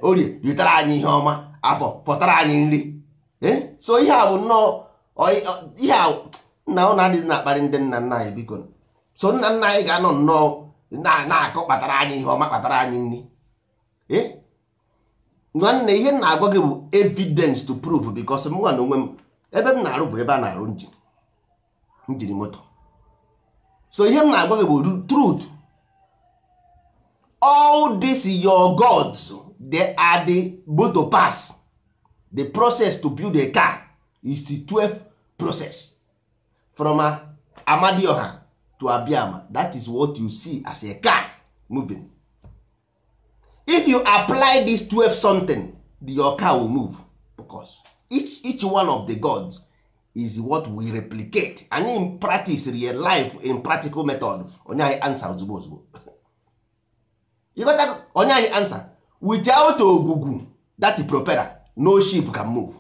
Speaker 1: orie ritere anyị ihe ọma afọ fọtara anyị nri Eh? so ihe a bụ nnọọ ihe a nna ụna adịghị na-akparị ndị nna nna anyị biko so nna nna anyị ga-anọ nnọọ na-akọ kpatara anyị ihe ọma kpatara anyị nri eh? nwanne ihe na-agwa gị bụ evidence to prove because m nwa na onwe m ebe m na-arụ bụ ebe a na-arụ njiri moto so ihe m na-agwa gị bụ truth all these your gods they are the but to pass the process to build a car is the 12 process from amadioha to abiama that is what you see as a car moving if you apply this 12 something your car will move because each, each one of the gods is what we replicate anyị practice real life in practical method onye anyị answer ozugbo ozugbo you onye anyị answer without ogugu that propeller no ship can move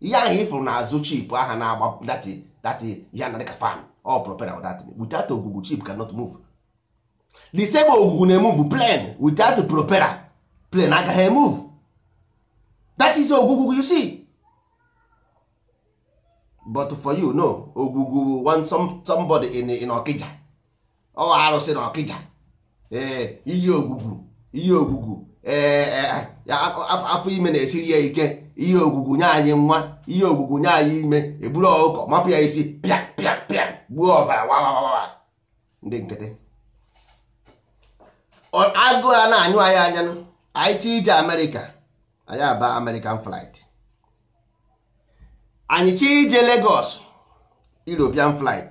Speaker 1: ihe ahụ ịfụrụ n'azụ chip aha na-agba dati dati ya na dịka fan ọ propera or dat without ogugu chip cannot move the same ogugu na-emove plane witout propera plane agaghị emove that is ogugu you see but for you no ogugu want some, somebody in, in Okija ọ arụsị na Okija ee iyi ogugu iyi ogugu ee afọ ime na-esiri ya ike ihe ogwugwu nye anyị nwa ihe ogwugwu nye anyị ime eburu ọkụkọ mapụ ya isi pịa pịa pịa gbuo ọbara wawawawa ndị nkịtị agụ a na-anyụ anyị anya anyị ije amerịka anyị aba american flight anyị chi ije Lagos European flight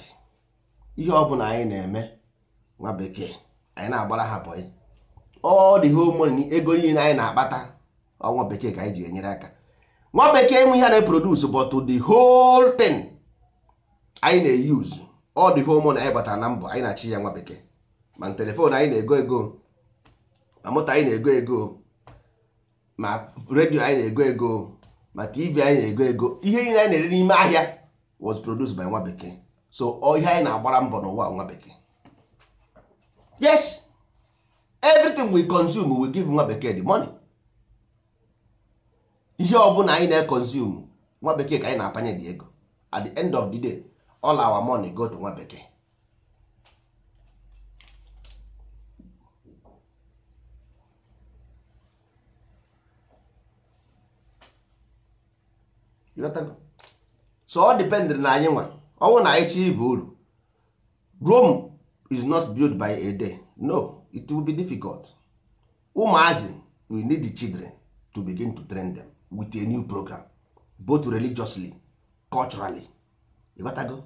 Speaker 1: ihe ọ bụla anyị na-eme nwa bekee anyị na-agbara ha bọyị all the whole money ego niile anyị na-akpata ọnwa bekee ka anyị ji enyere aka nwa bekee enwe ihe na-eproduce but the whole thing anyị na-eyuzu all the whole money anyị batara na mbọ anyị na-achị ya nwa bekee ma telefon anyị na-ego ego ma moto anyị na-ego ego ma redio anyị na-ego ego ma tv anyị na-ego ego ihe niile anyị na-ere n'ime ahịa was produced by nwa bekee so ihe anyị na-agbara mbọ n'ụwa nwa bekee yes everything we consume we give nwa bekee the money ihe ọbụla anyị na-ekonsume nwa bekee ka anyị na-apanye dị ego at the end of the day all our money go to nwa bekee so ọ dependịrị na anyị nwa ọnwụ na anyị chi ibe uru Rome is not built by a day no it will be difficult ụmụazị we need the children to begin to train them with a new program both religiously culturally ịghọtago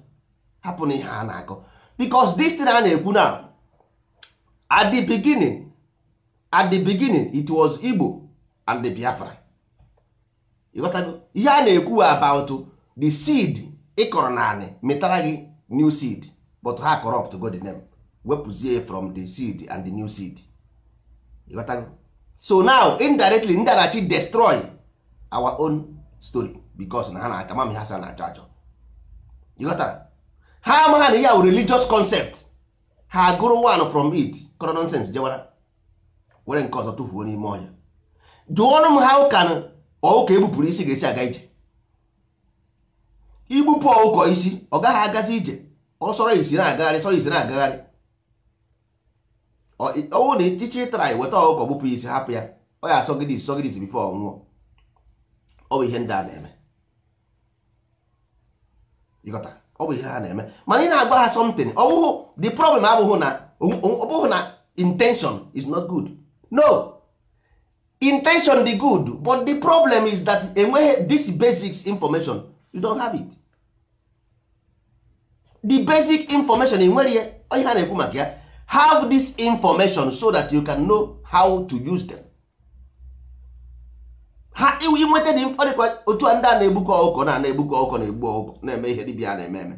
Speaker 1: hapụ na ihe a na-akọ because this thing a na-ekwu na at the beginning at the beginning it was Igbo and the Biafra ịghọtago ihe a na-ekwu about the seed ịkọrọ naanị metara gị new seed but ha corrupt go the name wepụzie from the seed and the new seed ịghọtago so now indirectly ndị destroy our own story because na ha na-aka mami ha sa na-achọ achọ ịghọtara ha amaha na ya wụ religious concept ha gụrụ one from it kọrọ nonsense jewara were nke ọzọ tụfuo n'ime ọhịa jụọnụ m ha ụka ọụka ebupụrụ isi ga-esi aga ije igbupụ ọụkọ isi ọ gaghị agazi ije sọrọ isi na-agagharị sọrọ isi na-agagharị ọnwụ na ịchịchị ịtara ya weta ọgwụgwọ gbupụ isi hapụ ya ọ ya asọgide isọgide before bifo ọnwụọ ọ bụ ihe ndị a na-eme ịghọta ọ bụ ihe ha na-eme mana ị na-agba ha something ọ the problem abụghụ na ọ na intention is not good no intention dị good but the problem is that enweghị this basic information you don't have it the basic information enwere ihe ha na-ekwu maka ya have this information so that you can know how to use them. ha iwu inweta dị mkpọrịkwa otu a ndị a na-egbukọ ọkụkọ na na-egbukọ ọkụkọ na-egbu ọkụkọ na-eme ihe dibịa na-eme eme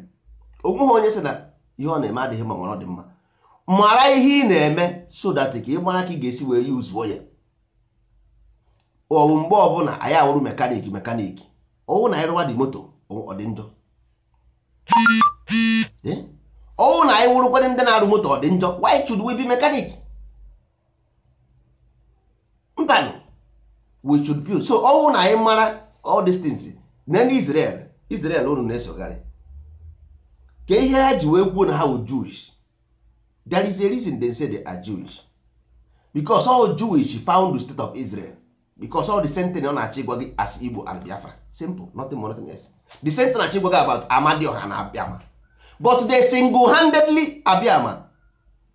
Speaker 1: onweghị onye sị na ihe ọ na-eme adịghị ma ọ dị mma mara ihe ị na-eme so that ka ị mara ka ị ga-esi wee yuzuo ya ọwụ mgbe ọbụla anyị awụrụ mekaniki mekaniki ọwụ na anyị dị moto ọ dị njọ eh? ọnwụ na anyị wụrụkwa ndị na-arụ moto ọ dị njọ why should we be mechanic mbanụ we should build so ọnwụ na anyị mara all these things na ndị Israel Israel unu na-esogharị ka ihe ha ji wee kwuo na ha wụ Jewish there is a reason they say they are Jewish because all Jewish found the state of Israel because all the same thing ọ na-achọ gị as Igbo and Biafra simple nothing more nothing less the same thing na-achọ gị about Amadioha na Abiama but the single handedly Abiama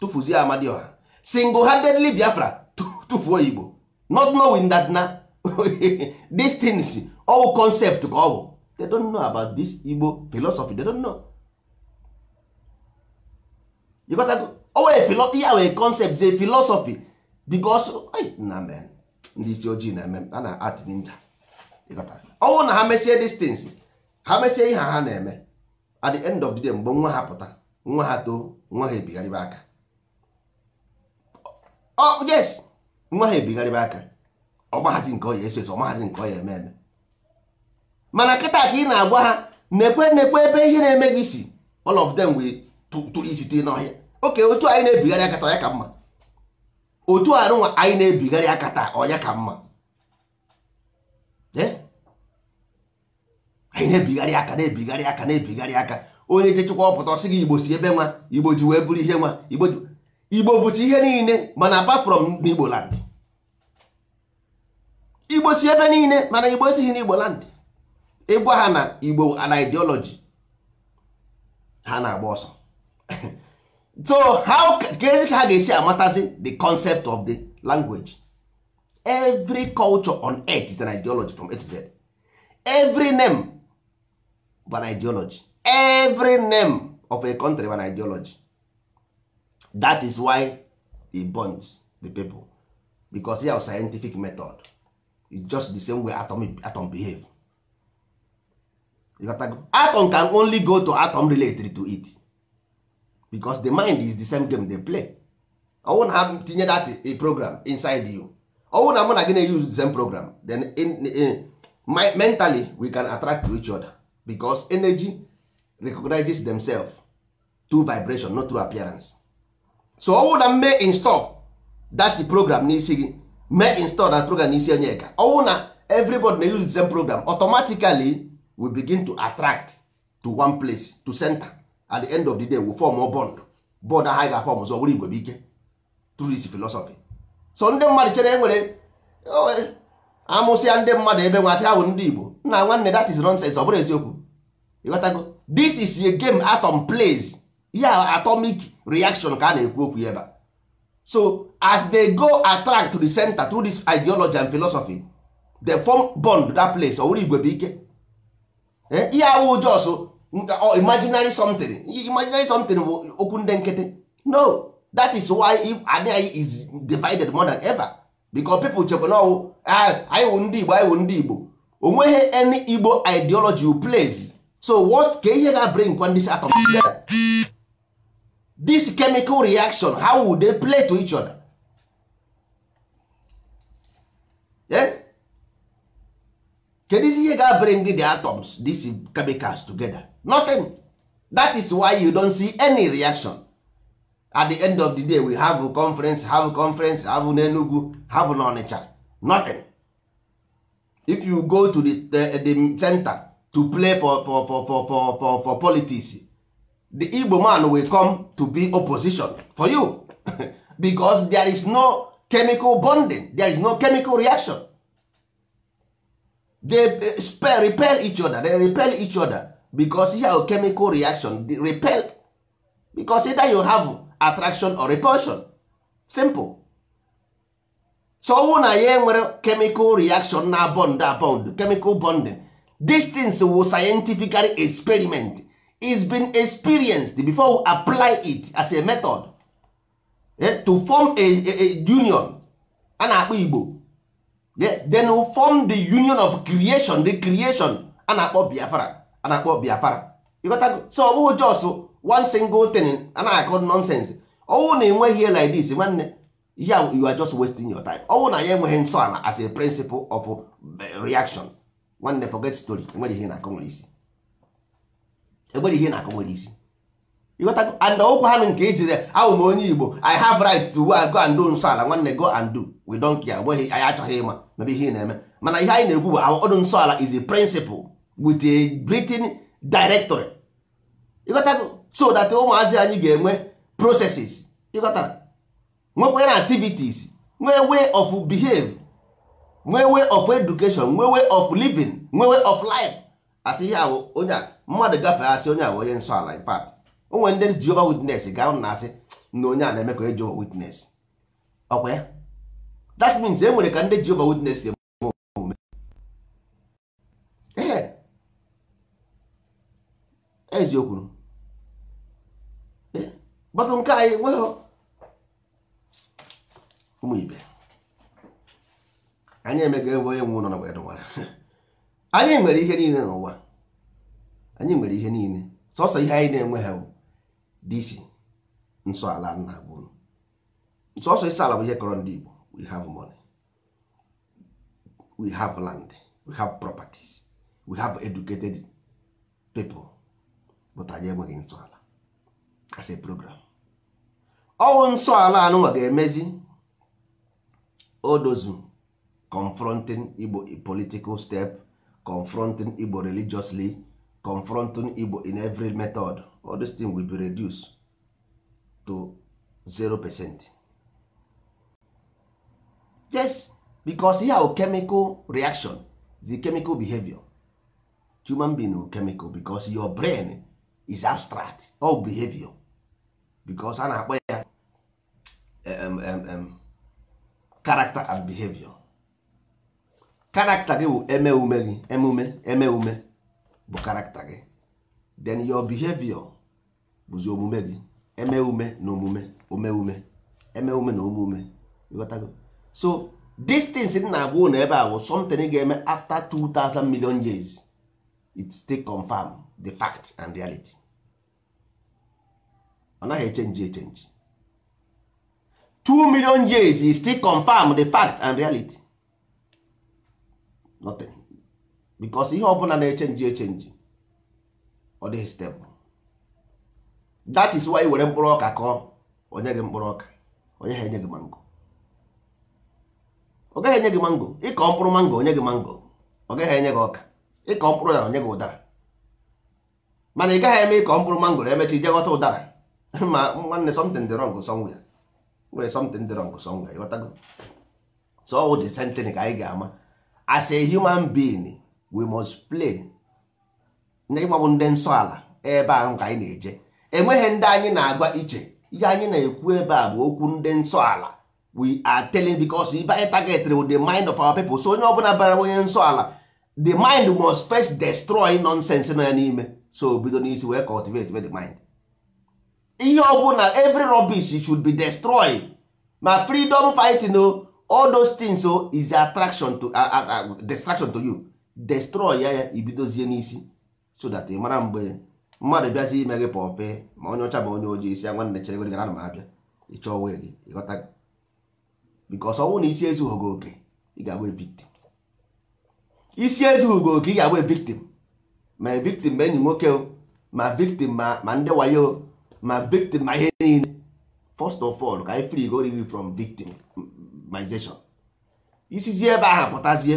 Speaker 1: tụfuzie Amadioha single handedly Biafra tụfuo Igbo not knowing that na these things all concept ka ọ bụ they don't know about this Igbo philosophy they don't know you got to owe philo wee concept ze philosophy because na men ndị isi ojii na eme a na art ninja ọnwụ na ha mesie these things ha mesie ihe ha na-eme at the end of the day mgbe nwa ha pụta nwa ha too nwa ha ebigharịba aka oh yes nwa ha ebigharịba aka ọgbahazi nke ọya eso eso nke ọya eme eme mana kịta ka ị na-agwa ha nekwe nekwe ebe ihe na-eme gị si all of them wee tụrụ isi tee n'ọhịa oke otu anyị na-ebigharị aka taa ka mma otu arụnwa anyị na-ebigharị aka taa ọya ka mma ee eh? anyị na-ebigharị aka na-ebigharị aka na-ebigharị aka onye jechekwa ọpụta ọsị gị igbo si ebe nwa igbo ji wee bụrụ ihe nwa igbo bụcha ihe niile mana apa from Igbo land igbo si ebe niile mana igbo esighị n'igbo land ịgwa ha na igbo na ideology ha na-agba ọsọ so how ga-ezi ka ha ga-esi amatazi the concept of the language every culture on earth is an ideology from A to every name bụ an ideology every name of a country bụ an ideology that is why e bonds the people because ya scientific method is just the same way atom, atom behave atom can only go to atom related to it because the mind is the same game they play ọwụ na ha tinye that a program inside you ọwụ na mụ na gị na-use the same program then in, in, in, mentally we can attract to each other because energy recognizes themselves through vibration not through appearance so ọ na mee install that program n'isi gị mee install that program n'isi onye ka ọ na everybody na use the same program automatically we begin to attract to one place to center at the end of the day we form a bond bond ahụ ga-afọm ọzọ were igwe bụ ike through this philosophy so ndị mmadụ chere enwere amụsịa ndị mmadụ ebe nwa ahụ ndị Igbo nna nwanne that is nonsense ọ bụrụ eziokwu ịghọtago this is a game atom plays ya atomic reaction ka a na-ekwu okwu ebe so as they go attract to the center through this ideology and philosophy they form bond that place owere igwe bụ ike eh, ihe awụ jos imaginary something imaginary something bụ okwu ndị nkịtị no that is why if anyị is divided more than ever because people chekwa oh, ah, na ọwụ anyị wụ ndị igbo anyị wụ ndị igbo onweghị any igbo ideology plays so what ka ihe ga-bring when this atom together this chemical reaction how would they play to each other eh? kedu ihe ga-bring the atoms these chemicals together nothing that is why you don't see any reaction at the end of the day we have a conference have a conference have n'Enugu have onicha, nothing if you go to the, the, the center to play for for for for for for, for politics the igbo man will come to be opposition for you because there is no chemical bonding there is no chemical reaction they spell, repel each other they repel each other because you have chemical reaction they repel because either you have attraction or repulsion simple so ọnwụ na ya enwere chemical reaction na bond abond chemical bonding these things were scientific experiment is been experienced before we apply it as a method eh, to form a, a, a union a na-akpọ igbo then we form the union of creation the creation a na-akpọ biafra a na-akpọ biafra so ọ bụghị jos one single thing a na-akọ nonsense ọwụ na enweghị like this nwanne ya you are just wasting your time ọwụ na ya enweghị nsọ ala as a principle of eh, reaction nwanne forget story enweghị ihe na-akọ nwere isi enweghị ihe na-akọ nwere isi and okwu ha nke ejire awụ m onye igbo i have right to go and do nsọ ala nwanne go and do we don't care anyị achọghị ịma mebe ihe na-eme mana ihe anyị na-ekwu bụ ọdụ nsọ ala is a principle with a written directory ịghọtago so that ụmụazị anyị ga-enwe processes ịghọtara nwekwere activities nwee way of behave nwe way of education nwe way of living nwe way of life asị ihe awụ onye a mmadụ gafee asị onye a onye nsọ ala in onwe ndị Jehovah witness ga na asị na onye a na-eme ka onye Jehovah witness ọkwa ya that means e nwere ka ndị Jehovah witness eme omume ee eziokwu batụ nke anyị e, nweghị ụmụ ibe anyị emega ebe onye nwe ụlọ n'ụwa anyị nwere ihe niile n'ụwa anyị nwere ihe niile sọsọ ihe anyị na-enwe ha disi nsọ ala nna gburu sọsọ isi ala bụ ihe kọrọ ndị Igbo we have money we have land we have properties we have educated people but anyị enweghị nsọ ala as a program ọwụ nsọ ala anụnwa ga-emezi odozu confronting igbo political step confronting igbo religiously confronting igbo in every method all this thing will be reduced to zero percent. yes because ihe have chemical reaction the chemical behavior human being will chemical because your brain is abstract all behavior because a na-akpọ ya character and behavior karakta gị bụ eme ume gị emume eme ume bụ karakta gị then your behavior bụzi omume gị eme ume na omume ome ume eme ume na omume ịghọtago so distance m na-agwa ụlọ ebe a bụ something ga-eme after 2000 million years it still confirm the fact and reality ọ naghị echenji echenji 2 million years it still confirm the fact and reality nothing because ihe ọbụla na-echenji echenji ọ dịghị stable that is why were mkpụrụ ọka kọọ onye gị mkpụrụ ọka onye ha enye gị mango ọ gaghị enye gị mango ịkọ mkpụrụ mango onye gị mango ọ gaghị enye gị ọka ịkọ mkpụrụ ya onye gị ụdara mana ị gaghị eme ịkọ mkpụrụ mango emechi ije ghọta ụdara ma nwanne something dị wrong somewhere nwere something dị wrong somewhere ghọtago so ọ dị sentịn ka anyị ga-ama as a human being we must play na ịgbabụ ndị nsọ ala ebe ahụ ka anyị na-eje enweghị ndị anyị na-agwa iche ihe anyị na-ekwu ebe a bụ okwu ndị nsọ ala we are telling because if anyị targeted the mind of our people so onye ọbụla bara onye nsọ ala the mind must first destroy nonsense nọ ya n'ime so bido n'isi wee cultivate the mind ihe ọbụla every rubbish should be destroyed ma freedom fighting o all those things so oh, is attraction to uh, uh, distraction to you destroy ya ya ibidozie n'isi so that ị eh, mara mgbe mmadụ bịazi ime gị pọpe ma onye ọcha ma onye ojii isi nwanne chere gị gana ma abịa ịchọ onwe gị ịghọta bikos ọnwụ na isi ezughị gị oke ị ga-agba victim isi ezughị gị oke ị ga-agba victim oh, ma victim ma enyi nwoke ma victim ma ndị wayo ma victim ma ihe niile first of all ka anyị free go from victim civilization isizi ebe ahụ pụtazie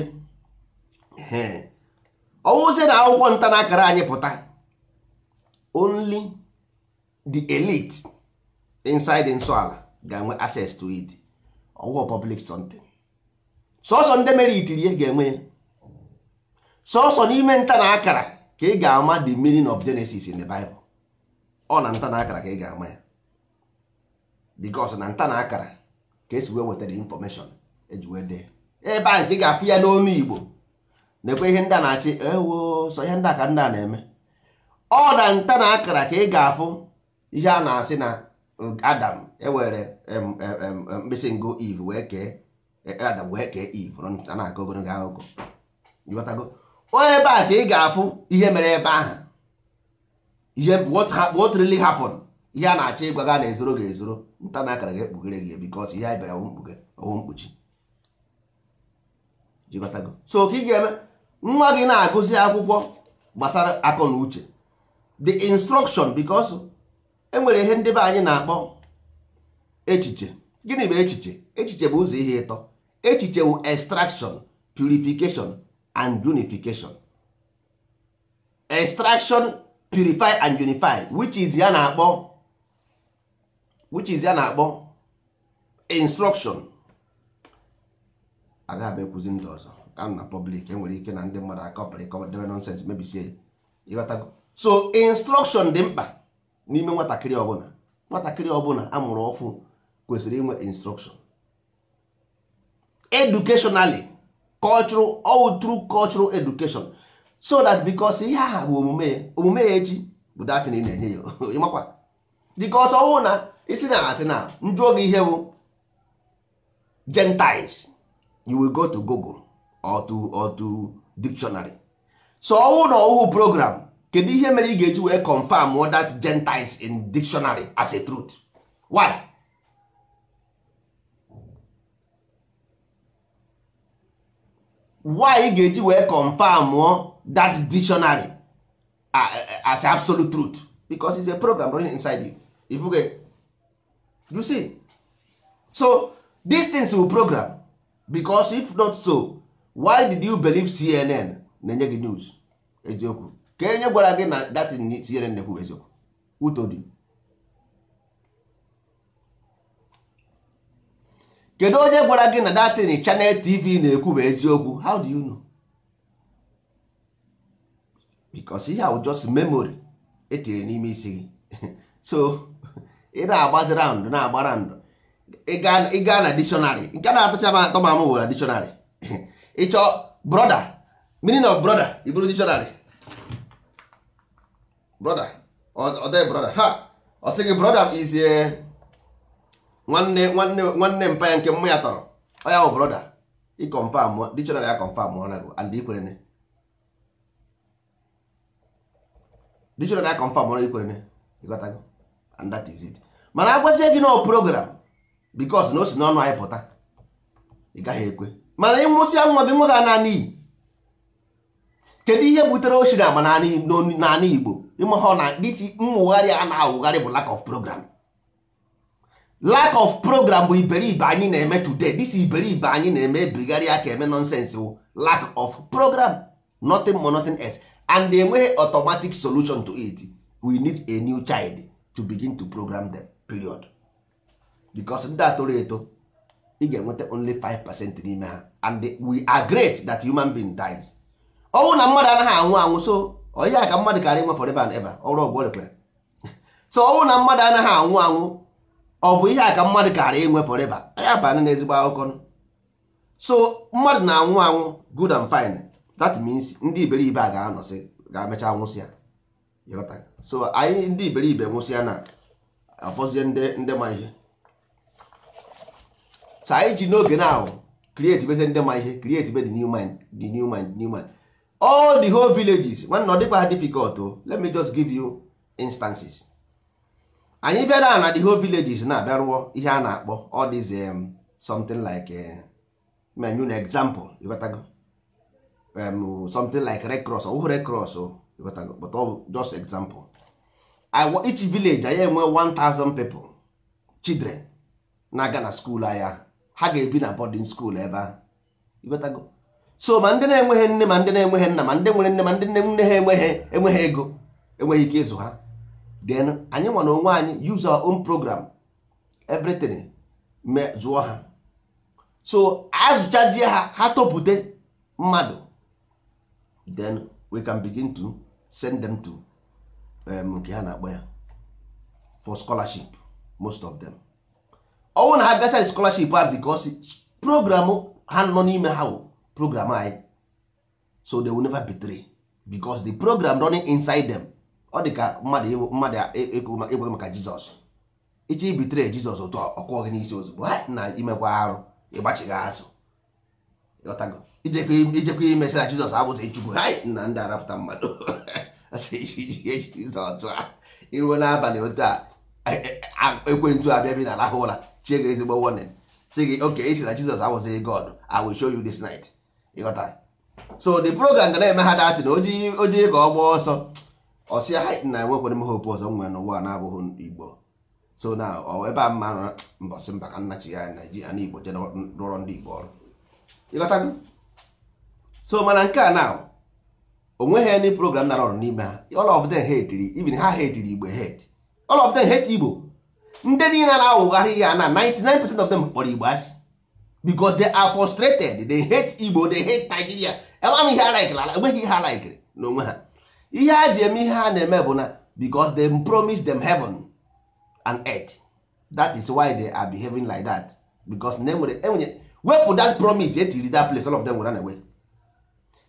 Speaker 1: ọwụzie na akwụkwọ nta na akara anyị pụta only the elite inside nsọala ga-enwe access to it ọwụwa public something sọsọ ndị mere itiri ga-enwe sọsọ n'ime nta na akara ka ị ga-ama the meaning of Genesis in the Bible ọ na nta na akara ka ị ga-ama ya because na nta na akara ka esi wee wetara infọmeshọn eji wee dee ebe a nke ị ga-afụ ya n'onu Igbo na-ekwe ihe ndị a na-achị ewo sọ ihe ndị a ka ndị a na-eme ọ na nta na akara ka ị ga-afụ ihe a na-asị na Adam ewere mkpịsị ngo Eve wee kee eh, eh, Adam wee kee Eve nta na-aka ogologo akụkọ ebe a ka ị ga-afụ ihe mere ebe ahụ ihe what really happened ihe a na-achọ ịgwa gị na-ezoro gị ezoro nta na akara gị ekpughere gị bikọs ihe anyị bịara mkpuge mkpuchi so ka ị ga-eme nwa gị na-agụzi akwụkwọ gbasara akọ na uche the instruction bikos enwere ihe ndị be anyị na-akpọ echiche gịnị bụ echiche echiche bụ ụzọ ihe ịtọ echiche bụ extraction purification and unification extraction purify and unify which is ya na-akpọ which is ya na-akpọ instruction agaghị ekwuzi ndị ọzọ ka na public enwere ike na ndị mmadụ akọpịrị debe nonsens mebisie ịghọtago so instruction dị mkpa n'ime nwatakịrị ọbụla nwatakịrị ọbụla amụrụ ọfụ kwesịrị inwe instruction educationally cultural ọwụtru through cultural education so that because ihe aha bụ omume ya omume ya echi bụ datin ị na-enye ya ịmakwa because ọwụ na isi na asị na njụọ gị ihe bụ gentiles you will go to google or to or to dictionary so ọnwụ na ọwụwụ program kedu ihe mere ị ga-eji wee confirm that gentiles in dictionary as a truth why why ị ga-eji wee confirm that dictionary as absolute truth because it's a program running inside you if you you see so these things will program because if not so why did you believe cnn na-enye gị news eziokwu ka enye gwara gị na datin cnn na-ekwu eziokwu who told you kedu onye gwara gị na datin chanel tv na-ekwu bụ eziokwu how do you know because ihe ahụ just memory etinyere n'ime isi gị so ị na-agbazi raụndụ na-agba raụndụ ịga na dictionary nke na-atụcha m atọ ma m bụ na dictionary ịchọ brother meaning of brother i bụrụ dictionary brother ọdọ ha ọ sị gị brother izie eh, nwanne nwanne nwanne mpa ya nke mma ya tọrọ ọ ya bụ brother i confirm dictionary ya confirm ọra gị and ikwerene dictionary ya confirm ọra ikwerene ịghọtago and that is it mana agwazie gị nọ program bikos na o si n'ọnụ anyị pụta ị gaghị ekwe mana ịnwụsịa nwa gị nwa gị ana kedu ihe butere ochi na agba Igbo ịmahọ na dịti mwụgharị a na-awụgharị bụ lack of program lack of program bụ iberibe anyị na-eme today this iberibe anyị na-eme ebigharị aka eme nonsense wụ lack of program nothing more nothing else and enweghị automatic solution to it we need a new child to begin to program them. period because ndị a toro eto ị ga-enweta only 5 percent n'ime ha and we are great that human being dies ọnwụ na mmadụ anaghị anwụ anwụ so onye a ka mmadụ karịa nwe forever and ever ọrụ ọgwụ so ọnwụ na mmadụ anaghị anwụ anwụ ọ bụ ihe a ka mmadụ karịa inwe forever ya banye na ezigbo akụkọ so mmadụ na-anwụ anwụ good and fine that means ndị iberibe a ga-anọsị ga afọzie ndị ma ihe so anyị ji n'oge na ahụ create beze ndị ma ihe create be the new mind the new mind all the whole villages nwanne ọ dịkwa ha difficult o let me just give you instances anyị bịara na the whole villages na-abịa rụọ ihe a na-akpọ all these um, something like eh, menu na example ịghọtago um, something like red cross ọ wụghị red cross o but but just example each village anyị enwe 1000 people children na-aga na skuul anya ha ga-ebi na boarding school ebe ahụ so ma ndị na-enweghị nne ma ndị na-enweghị nna ma ndị nwere nne ma ndị nne nne ha enweghị enweghị ego enweghị ike ịzụ ha then anyị nwa onwe anyị use our own program everything zụọ ha so azụchazie ha ha topute mmadụ then we can begin to send them to Um, nke ha na-akpọ ya for scholarship most of them ọnwụ na ha bịasara scholarship a because program ha nọ n'ime ha wụ program anyị so they will never betray because the program running inside them ọ dị ka mmadụ mmadụ egwe e, e, e, maka jizọs iche ibitere jizọs otu ọkụọ gị n'isi ozugbo na imekwa arụ ịgbachighị azụ ijekwa na jizọs abụzi chukwu na ndị arapụta mmadụ iruo n'abalị otu a ekwentị abịa bi na alahụ ụra chie gị ezigbo warning e si gị oke isi na Jizọs awụzighị e God I will show you this night ịghọtara so the program ga na-eme ha na ojii ka ọ gbaa ọsọ ọsịa ha na enwekwere m hope ọzọ nwere n'ụwa na-abụghị Igbo so na ebe a mma mbọsị mba ka nnachi ya Naijiria na Igbo je rụrọ ndị Igbo ọrụ ịghọtago so mana nke a na onweghị any program nara ọrụ n'ime ha all of them hate even ha hate igbo hate all of them hate igbo ndị niile na-awụgharị ya na 99% of them kpọrọ igbo asị because they are frustrated they hate igbo they hate nigeria enweghị ihe ha laikiri enweghị ihe ha na onwe ha ihe a ji eme ihe ha na-eme bụ na because they promise them heaven and earth that is why they are behaving like that because na enwere enwere wepụ that promise etiri that place all of them were run away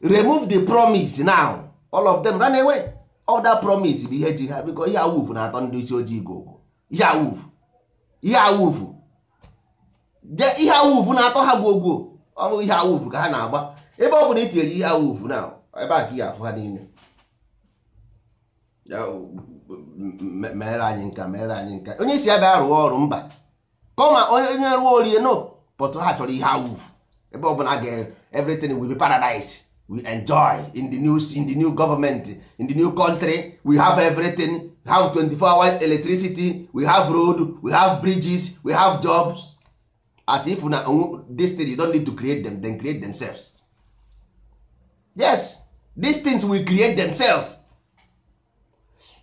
Speaker 1: remove the promise now all of them run away other promise bụ ihe ji ha biko ihe awufu na-atọ ndị isi ojii gogo ihe awufu ihe awufu ihe awufu na-atọ ha gwogwo ọ bụghị ihe awufu ka ha na-agba ebe ọ bụ na itinyere e ihe awufu na ebe a ka ihe afụ ha niile mere anyị nka mere anyị nka onye isi ya bịa rụọ ọrụ mba kọma onye rụọ orie no pọtụ ha chọrọ ihe awufu ebe ọ bụla ga everything will be paradise we enjoy in the new in the new government in the new country we have everything we have 24 hours electricity we have road we have bridges we have jobs as if na this thing you don't need to create them then create themselves yes these things will create themselves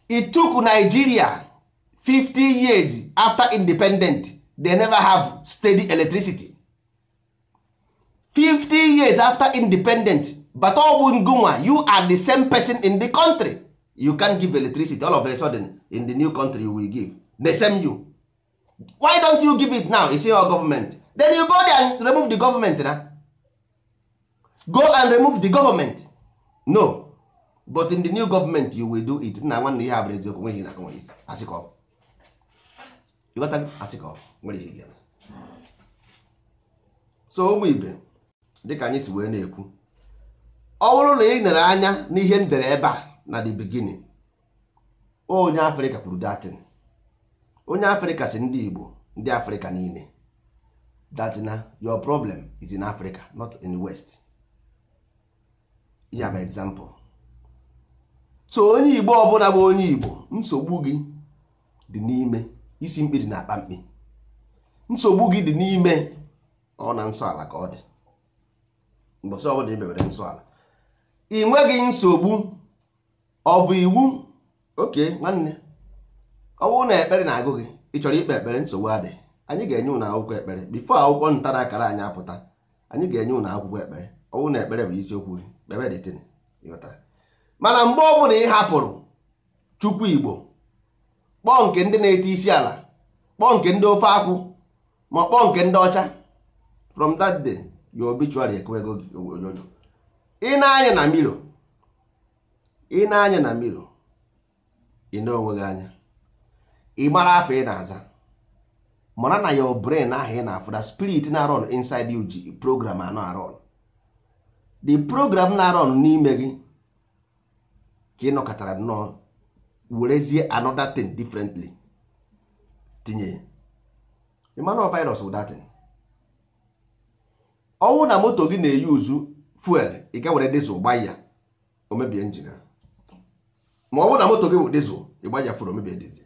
Speaker 1: it took nigeria 50 years after independent they never have steady electricity 50 years after independent but ọwụ ngụnwa you are the same person in the country you can give electricity all of a sudden in the new country you will give the same you why don't you give it now is your government then you go there and remove the government na go and remove the government no but in the new government you will do it nna nwanne ihe abụrụ eziokwu nweghị na you asịkọ ịghọta asịkọ nwere you ga so ụmụ ibe dịka anyị si wee na-ekwu ọ bụrụ na ị nere anya n'ihe m dere ebe a na the beginning onye afrịka kwuru datin onye afrịka si ndị igbo ndị afrịka niile datina your problem is in africa not in the west ya bụ example so onye igbo ọbụla bụ onye igbo nsogbu gị dị n'ime isi mkpi dị na akpa mkpi nsogbu gị dị n'ime ọ na nsọ ala ka ọ dị mbọsị ọbụla ebewere nsọ ala ị nweghị nsogbu ọ bụ iwu oke nwanne ọ na ekpere na-agụ gị ị chọrọ ikpe ekpere nsogbu adịghị anyị ga-enye ụnụ akwụkwọ ekpere bifo akwụkwọ nta na akara anyị apụta anyị ga-enye ụnụ akwụkwọ ekpere ọ bụrụ na ekpere bụ isiokwu gị mana mgbe ọ bụla ị hapụrụ chukwu igbo kpọọ nke ndị na eti isi ala kpọọ nke ndị ofe akwụ ma kpọọ nke ndị ọcha from that day your obituary ekwego gị ojojo ị na-anya na milo ị na-anya na ị na-onwe anya ị gbara afọ ị na-aza mara na your brain ahụ ị na afụda spirit na-arọn inside you ji program anọ arọn the program na-arọn n'ime gị ka ị nọkọtara nnọọ werezie another thing differently tinye ịmana virus bụ ọnwụ na moto gị na-eyi uzu fuel ị ga were dizụl gba ya o mebie ma ọ bụrụ na moto gị bụ dizụl ị fur omebie dizụl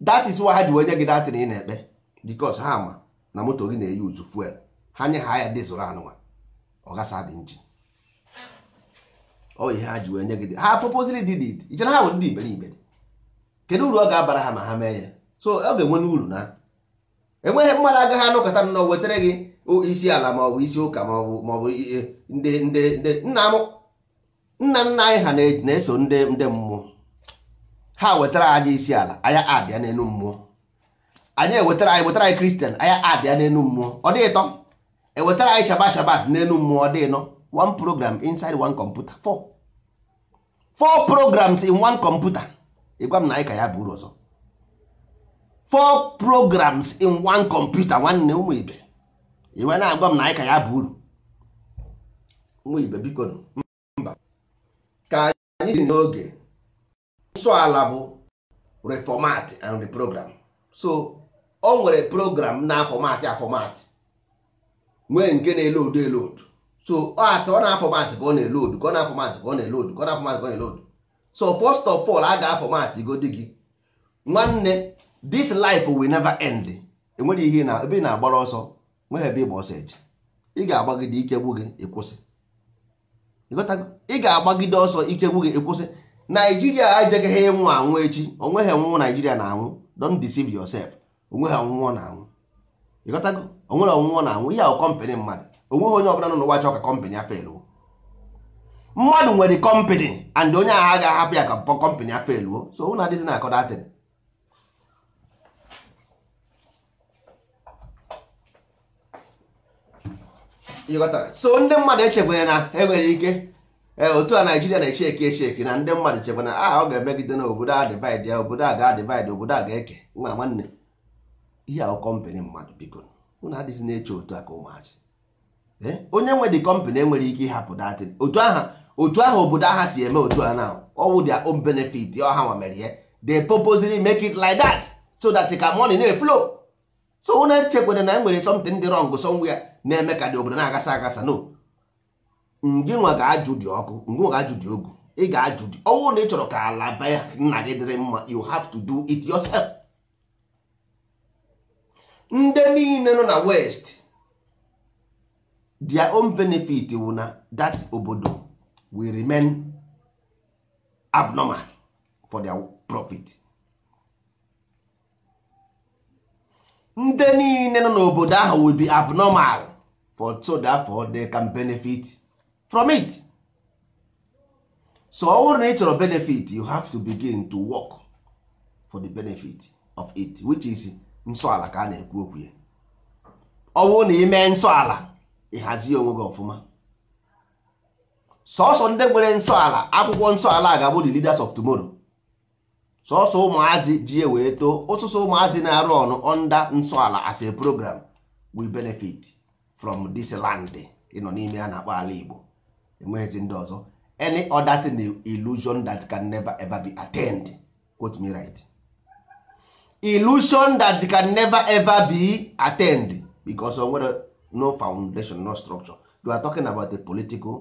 Speaker 1: dat is why ha ji onye gị datịn ị na-ekpe because ha ma na moto gị na-eyi uzu fuel ha nye ha ya dizụl anụnwa ọ gasa dị injin ọ ihe ha ji onye gị ha proposal dị it ichere ha bụ ndị iberibe kedu uru ọ ga-abara ha ma ha mee ya so ọ ga-enwe n'uru na enweghị mmadụ agaghị anụkọta nnọọ wetara gị isi ala ma ọ bụ isi ụka ma ọ bụ ndị ndị ndị nna m nna nna anyị ha na-eso ndị ndị mmụọ ha wetara anyị isi ala anyị abịa n'elu mmụọ anyị ewetara anyị wetara anyị kristian anyị abịa n'elu mmụọ ọ dị ịtọ ewetara anyị shaba shaba n'elu mmụọ ọ dị nọ one program inside one computer four four programs in one computer ịgwa m na anyị ka ya bụ uru ọzọ four programs in one computer nwanne ụmụ ibe iwe na-agwa m na anyị ka ya bụ uru nwa ibe biko mba ka anyị dị n'oge nsọ ala bụ reformat and program. so o nwere program na afọmatị afọmatị nwee nke na-elodu elodu so ọ asị ọ na-afọmatị ka ọ na-elodu ka ọ na-afọmatị ka ọ na-elodu ka ọ na-afọmatị ka ọ na-elodu so first of all a ga-afọmatị godi gị nwanne this life will never end enwere ihe na ebe ị na-agbara ọsọ nweghị ebe ịgba ọsọ eji ị ga-agbagide ikegbu gị ịkwụsị ị ga-agbagide ọsọ ikegbu gị ịkwụsị naijiria ejeghị ịnwụ anwụ echi onweghị ọnwụnwụ naijiria na-anwụ don't deceive yourself onweghị ọnwụnwụ na-anwụ ịghọtago onwere ọnwụnwụ na-anwụ ihe ahụ kọmpanị mmadụ onweghị onye ọbụla nọ n'ụwa chọọ ka kọmpanị a feluo mmadụ nwere kọmpanị and onye agha ga-ahapụ ya ka kọmpanị a feluo so na adịzi na akọdatịrị so ndị mmadụ echekwere na enwere ike e, otu a naijiria na-eche eke echeki na ndị mmadụ chekwa na ah ọ ga-emegide na obodo a dịbaid ya obodo a ga obodo a ga-eke nwa nwanne ihe ahụ kọmpanị mmadụ biko unu adịghị na-eche otu a ka ụmụazị eh, onye nwe dị kọmpanị enwere ike ịhapụ datị otu aha otu aha obodo aha si eme otu a na ọwụ their own benefit ọha nwa mere ya they purposely make it like that so that ka money na-eflow so unu echekwere na enwere something dị wrong somewhere na-eme ka dị obodo na-agasa agasa no nwa ga-ajụ dị ọkụ nwa ga-ajụ dị ogu ị ga-ajụ dị ọnwụ na ị chọrọ ka ala baya nna gị dịrị mma you have to do it yourself. ndị niile nọ na west their own benefit wụ na that obodo will remain abnormal for their profit. ndị niile nọ n'obodo ahụ will be abnormal for so therefore they can benefit from it so ọ wụrụ na ị chọrọ benefit you have to begin to work for the benefit of it which is nsọala ka a na-ekwu okwu ya ọ bụrụ na ime nsọ ala ịhazie onwe gị ọfụma Sọọsọ ndị nwere nsọ ala akwụkwọ nsọ ala ga-abụ the leaders of tomorrow sọsọ ụmụazị ji e wee too ụsụsụ ụmụazị na-arụ ọnụ onda nsọala as a program we benefit from this land ịnọ n'ime a na-akpọ ala Igbo enweghịzi ndị ọzọ any other thing illusion that can never ever be attend quote me right illusion that can never ever be attend because of whether no foundation no structure you are talking about a political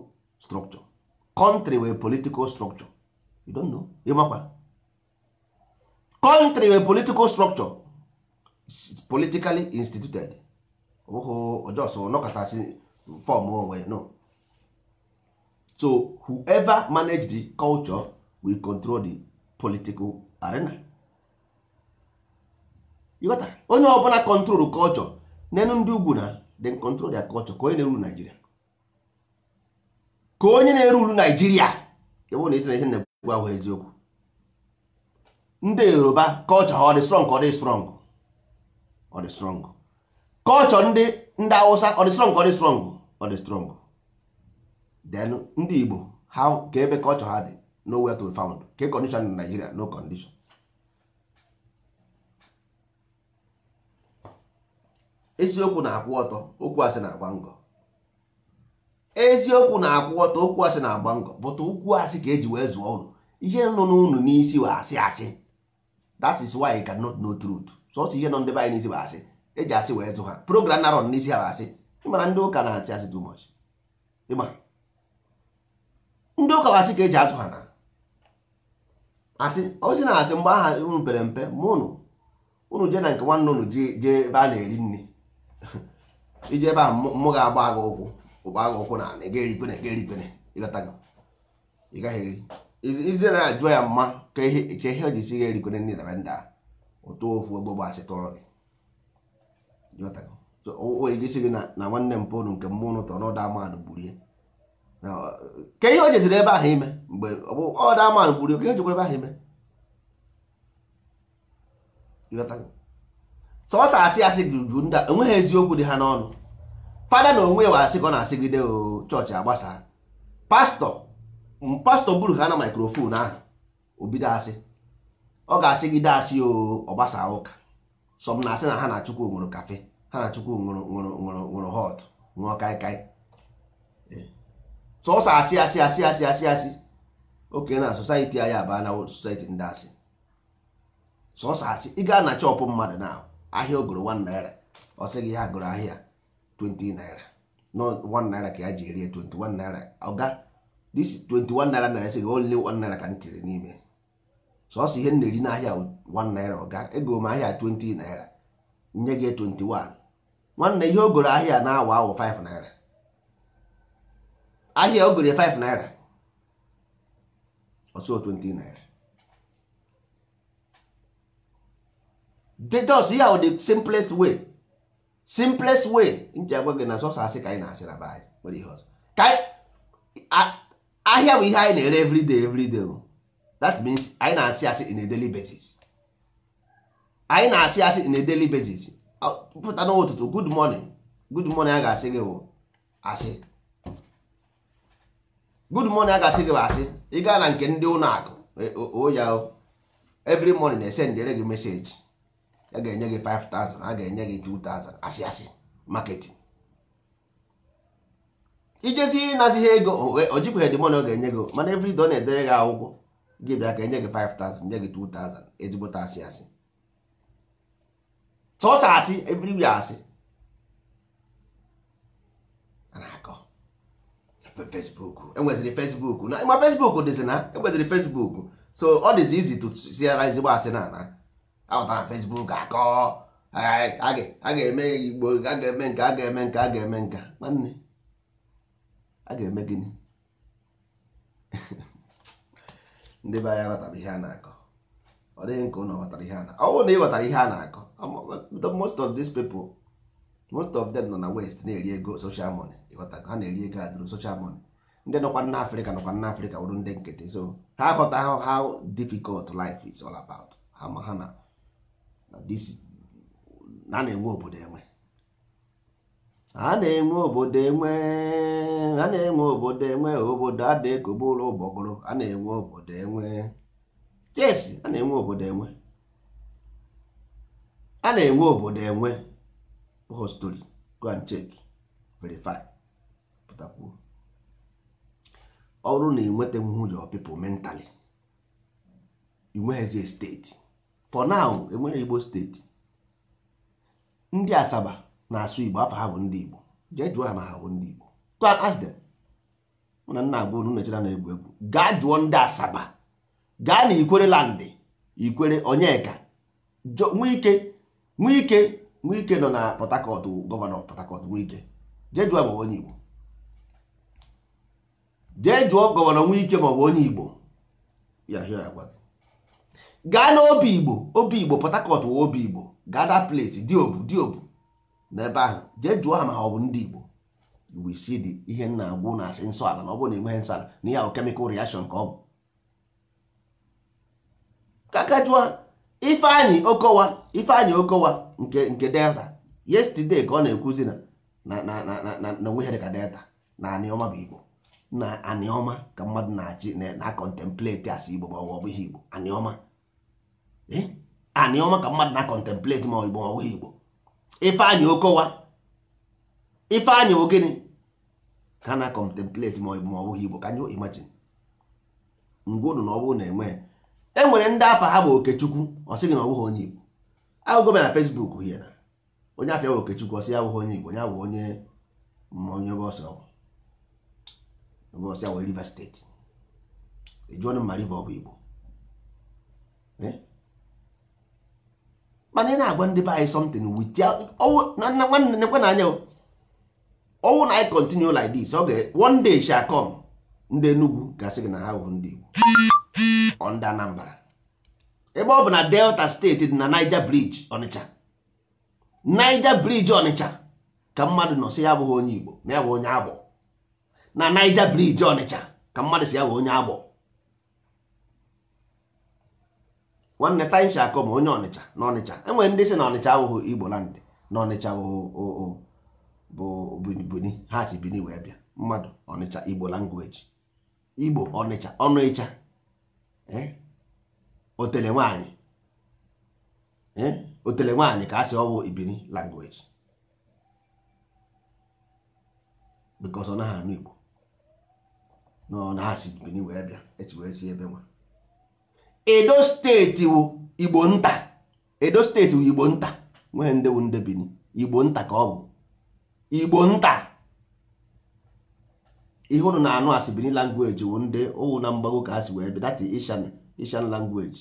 Speaker 1: structure country with political structure you don't know ịmakwa country wey political structure politically instituted ụhụ just nọkọtasị fọm onwe no so whoever manage the culture will control the political arena ịghọta onye ọbụla control culture Nenu, ndị ugwu na then control their culture ka onye na-eruru Nigeria ka onye na-eruru Nigeria ebe na isi na isi na egwu ahụ eziokwu ndị yoruba culture ọ dị strong ọ dị strong ọ dị strong culture ndị ndị awụsa ọ dị strong ọ dị strong ọ dị strong then ndị igbo ha ka ebe culture ha dị nowhere to be found ka e condition in nigeria no condition eziokwu na-akwụ ọtọ okwu asị na-agba ngọ eziokwu na-akwụ ọtọ okwu asị na-agba ngọ bụta okwu asị ka eji wee zụọ ụlọ ihe nọ n'ụnụ n'isi wa asị asị that is why you cannot know truth so otu ihe nọ ndị be anyị n'isi bụ asị eji asị wee zụ ha program narọ n'isi ha bụ asị ịmara ndị ụka na-asị asị too much ịma ndị ụka asị ka eji azụ ha na asị ozi na asị mgbe aha unu pere mpe ma unu unu jee na nke nwanne unu jee ebe a na-eri nri iji ebe a mmụ ga-agba agha ụkwụ ụgba agha ụkwụ na ị gaghị eri kwene ịgaghị eri ize na-ajụ ya mma ka ihe o jisi gha erikere nri na ndị a ụtụ ofu ogbo asị tụrụ gị isi gị na nwanne m pụrụ nke mmụọ ụtọ n'ọdụ ọda amanụ gburie Ka ihe o jeziri ebe ahụ ime mgbe ọda amanụ gburie ke ihe jikwa ebe ahụ ime sọsọ asị asị juju ndị enweghị eziokwu dị ha n'ọnụ fada na onwe ya wa asị ka ọ na-asịgide o chọọchị agbasa pastọ Mm, pastọ buru ha na maikrofon ahụ obido asị ọ ga-asị gị dasị ọgbasa ụka sọm na asị na ha na chukwu nwụrụ kafe ha na chukwu nwụrụ hot ṅụọ kaikai eh. sọsọ asị asị asị asị asị asị oke na society anyị abaa na society ndị asị sọsọ asị ị gaa na chọpụ mmadụ na ahịa ogoro 1 naira ọ sị gị ya goro ahịa 20 naira na 1 naira ka ya ji erie 21 naira ọ ga this 21 naira naira sị gị only one naira ka m tiri n'ime sọsọ ihe m na-eri n'ahịa 1 naira ọga oh, ego m ahịa 20 naira nye gị 21 nwanne ihe o goro ahịa na-awa awụ 5 naira ahịa o goro 5 naira ọsọ 20 naira dedos ihe ahụ the simplest way simplest way nji agwa gị na sọsọ asị ka anyị na-asị na be anyị nwere ihe ọzọ ahịa bụ ihe anyị na-ere everyday everyday that means anyị na-asị asị in a daily basis anyị na-asị asị in a daily basis pụta n'ụtụtụ good morning good morning a ga-asị gị bụ asị good morning a ga-asị gị bụ asị ị gaa na nke ndị ụlọ akụ e, oya every morning na-esendere gị meseji a ga-enye gị 5000 a ga-enye gị 2000 asị asị marketing ijezie ịnazi ihe ego o jikwa hedimon ọ ga-enye gị mana evrido na-edere gị akwụkwọ gị bịa ka enye 5000 nye gị 2000 ezigbo asị asị sọsọ asị evriwi asị na-akọ Facebook enweziri Facebook Facebook dịzi na e Facebook so ọ dịzi izi ezigbo asị na ana Facebook akọ a ga-eme igbo a ga-eme nke a ga-eme nke a ga-eme nka nwanne a ga-eme gịnị ndị be anyị ghọtara ihe a na-akọ ọ dịghị nke ụnụ ghọtara ihe a na ọwụ na ịghọtara ihe a na-akọ most of these people most of them nọ na west na-eri ego social money ịghọta ha na-eri ego adụrụ social money ndị nọkwa na afrịka nọkwa na afrịka wụrụ ndị nkịtị so ha ghọta how difficult life is all about ha ma ha na na na-enwe obodo enwe a na-enwe obodo enwe a na-enwe obodo enwe obodo a na-ekobe ụlọ ụgbọgụrụ a na-enwe obodo enwe yes a na-enwe obodo enwe a na-enwe obodo enwe hostori go and check verify pụtakwuo ọ na ịnweta mmụjọ pipụl mentali inweghịzi steeti for now enwere igbo steeti ndị asaba na-asụ Igbo afa ha bụ ndị Igbo jee jụọ ha ma ha bụ ndị Igbo na nna agwa unu nechara na egwu egwu gaa jụọ ndị Asaba gaa na Ikwere landị Ikwere Onyeka Nwike Nwike Nwike nọ na Port Harcourt gọvanọ Port Harcourt Nwike jee jụọ ma onye Igbo jee jụọ gọvanọ Nwike ma ọ bụ onye Igbo ya hịa ya gwa gaa n'obi Igbo obi Igbo Port Harcourt wụ obi Igbo gaa that place diobu diobu n'ebe ahụ jee jụọ ha ma ha ọ bụ ndị Igbo we isi the ihe nna agwụ na asị nsọ ala na ọ bụrụ na enweghị nsọ ala na ihe ahụ kemikal reaction ka ọ bụ kaka jụọ Ifeanyị Okowa Ifeanyị Okowa nke nke Delta yesterday ka ọ na-ekwuzi na na na na na onwe ihe dịka Delta na aniọma bụ Igbo na aniọma ka mmadụ na-achị na contemplate asị Igbo ma ọ bụ ihe Igbo aniọma eh? aniọma ka mmadụ na contemplate ma ọ Igbo ma ọ Igbo Ifeanyị Okowa Ifeanyị Ogene ka na contemplate ma ọ bụghị Igbo ka anyị imagine mgbe unu na ọ bụrụ na enweghị e nwere ndị afa ha bụ Okechukwu ọ sịghị na ọ bụghị onye Igbo agụgụ bịa na Facebook hie na onye afịa bụ Okechukwu ọ sị ya abụghị onye Igbo onye bụ onye onye ọsọ ọsọ Rivers steeti ejụọnụ ma Rivers ọ bụ Igbo eh? mana ị na-agwa ndị be anyị something with ya nwanne nekwe na anya ọnwụ na anyị continue like this ọ ga one day shall come ndị Enugu gasị gị na ha bụ ndị Igbo ndị Anambra ebe ọ bụ na Delta steeti dị na Niger Bridge Ọnịcha Niger Bridge Ọnịcha ka mmadụ nọ si ya abụghị onye Igbo na ya bụ onye agbọ na Niger Bridge Ọnịcha ka mmadụ si ya bụ onye agbọ nwanne tansha akọ ma onye ọnịcha na ọnịcha enwere ndị si na ọnịcha awụghụ igbo land na ọnịcha bụ bini ha si bini wee bịa mmadụ ọnịcha igbo langweji igbo ọnịcha ọnụ ịcha eh, otele nwaanyị eh, otele nwaanyị ka a sị ọwụ ibini langweji anụ igbo na ọ na ha si bini wee bịa e wee si ebe nwa edo steeti wu igbo nta edo steeti wu igbo nta nwee ndewu nde bini igbo nta ka ọ bụ igbo nta ihe ụnụ na-anụ asị bini language wu ndị owu na mgbago ka asị wee that ishan ishan language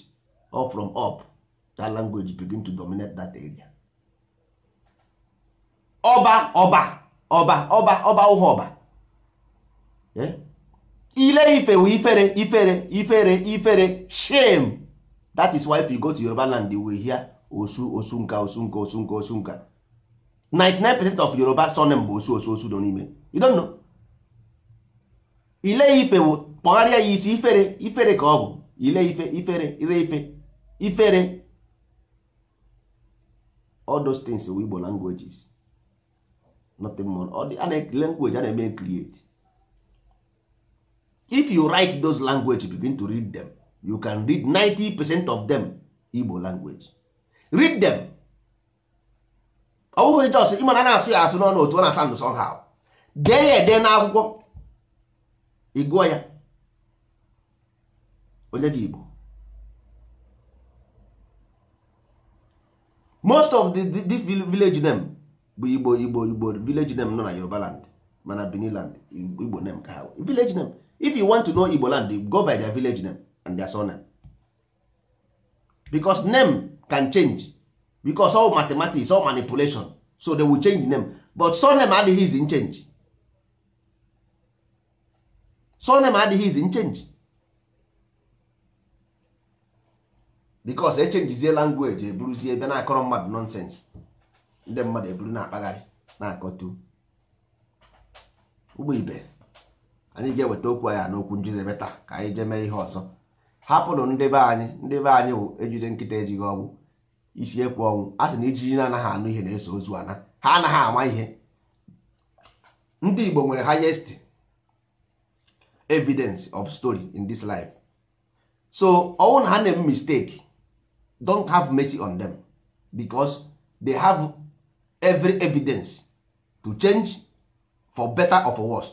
Speaker 1: all from up that language begin to dominate that area ọba ọba ọba ọba ọba ụha ọba eh? ile ife ifere ifere ifere ifere shame that is why if you go to Yoruba land you will hear osu osu nka osu nka osu nka osu nka 99% of Yoruba surname bụ osu osu osu nọ n'ime you don't know ile ife wụ kpọgharịa ya isi ifere ifere ka ọ bụ ile ife ifere ire ife ifere all those things wụ Igbo languages nothing more all dị a na language a na-eme create if you write those language begin to read them you can read 90 percent of them Igbo language read them ọ bụghị jos ịmana na-asụ ya asụ n'ọnụ otu ọ na-asa ndụ somehow dee ya ede n'akwụkwọ ị gụọ ya onye gị Igbo most of the, the, the village name bụ Igbo Igbo Igbo village name nọ na Yoruba land mana Benin land Igbo name ka ha village name if you want to know igbo land go by their village name and their surname because name can change because all mathematics all manipulation so they will change name but surname adịghị is in change surname adịghị is in change because echenjizie language eburuzie ebe na-akọrọ mmadụ nonsense ndị mmadụ eburu na-akpagharị na-akọtu ụgbọ ibe anyị ga-eweta okwu anya n'okwu njize taa ka anyị jee mee ihe ọzọ hapụrụ ndị be anyị ndị be anyị wụ ejide nkịta ejighị ọgwụ isi ekwu ọnwụ a sị na ijiji na-anaghị anụ ihe na-eso ozu ana ha anaghị ama ihe ndị Igbo nwere hayest evidence of story in this life so ọnwụ na ha na-eme mistake don't have mercy on them because they have every evidence to change for better or for worse.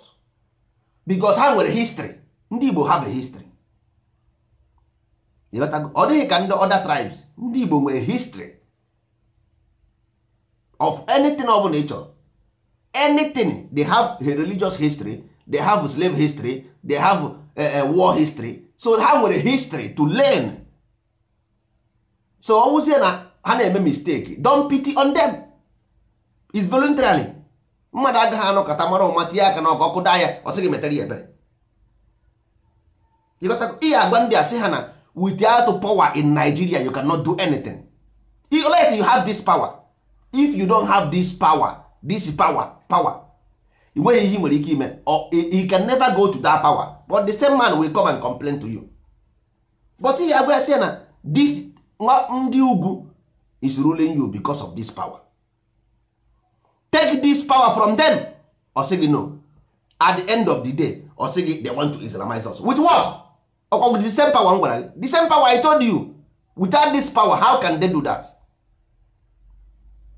Speaker 1: because ha nwere history ndị Igbo ha bụ history ọ dịghị ka ndị other tribes ndị Igbo nwere history of anything ọ bụla ị chọrọ anything they have a religious history they have slave history they have a, war history so ha nwere history to learn so ọ wụzie na ha na-eme mistake don pity on them is voluntarily mmadụ agaghị anọkọta mara ụma tinye aka n'ọkụ ọkụ daa ya ọ sị gị metara ya ebere ihe agwa ndị a sị ha na without power in Nigeria you cannot do anything unless you have this power if you don't have this power this power power ị nweghị ihe nwere ike ime you can never go to that power but the same man will come and complain to you but ihe agwa ya sị na this ndị ugwu is ruling you because of this power take this power from them ọ gị no at the end of the day ọ sị gị they want to islamize us with what ọkwa with the same power m gwara gị the same power i told you without this power how can they do that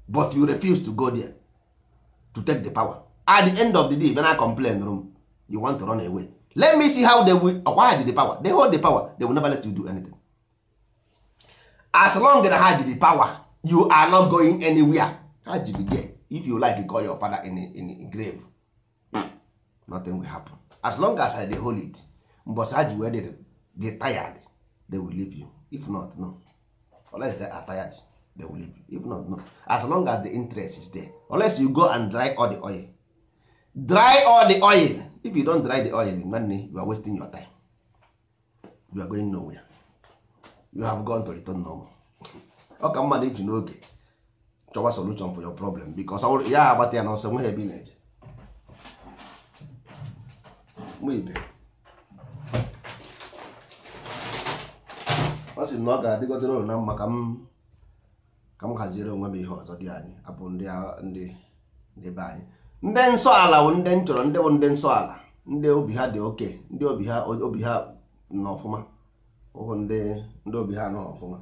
Speaker 1: but you refuse to go there to take the power at the end of the day when i complain room you want to run away let me see how they will acquire uh, the power they hold the power they will never let you do anything as long as ha ji the power you are not going anywhere ha ji be there if you like call your father in, in grave nothing will happen as long as i dey hold it mbọsị ha wey dey dey tired they will leave you if not no unless they are tired they will leave you if not no as long as the interest is there unless you go and dry all the oil dry all the oil if you don dry the oil nwanne you are wasting your time you are going nowhere you have gone to return normal ọ ka mmadụ iji n'oge chọwa solution for your problem because ya agbata ya n'ọsọ nweghị ebe ebi na-eje ibe ọ sị na ọ ga-adịgodere ụlọ na mma ka m ka m haziere onwe m ihe ọzọ dị anyị abụ ndị ndị be anyị ndị nsọ ala bụ ndị nchọrọ ndị bụ ndị nsọ ala ndị obi ha dị oke ndị obi ha obi ha nọ ọfụma ụhụ ndị obi ha nọ ọfụma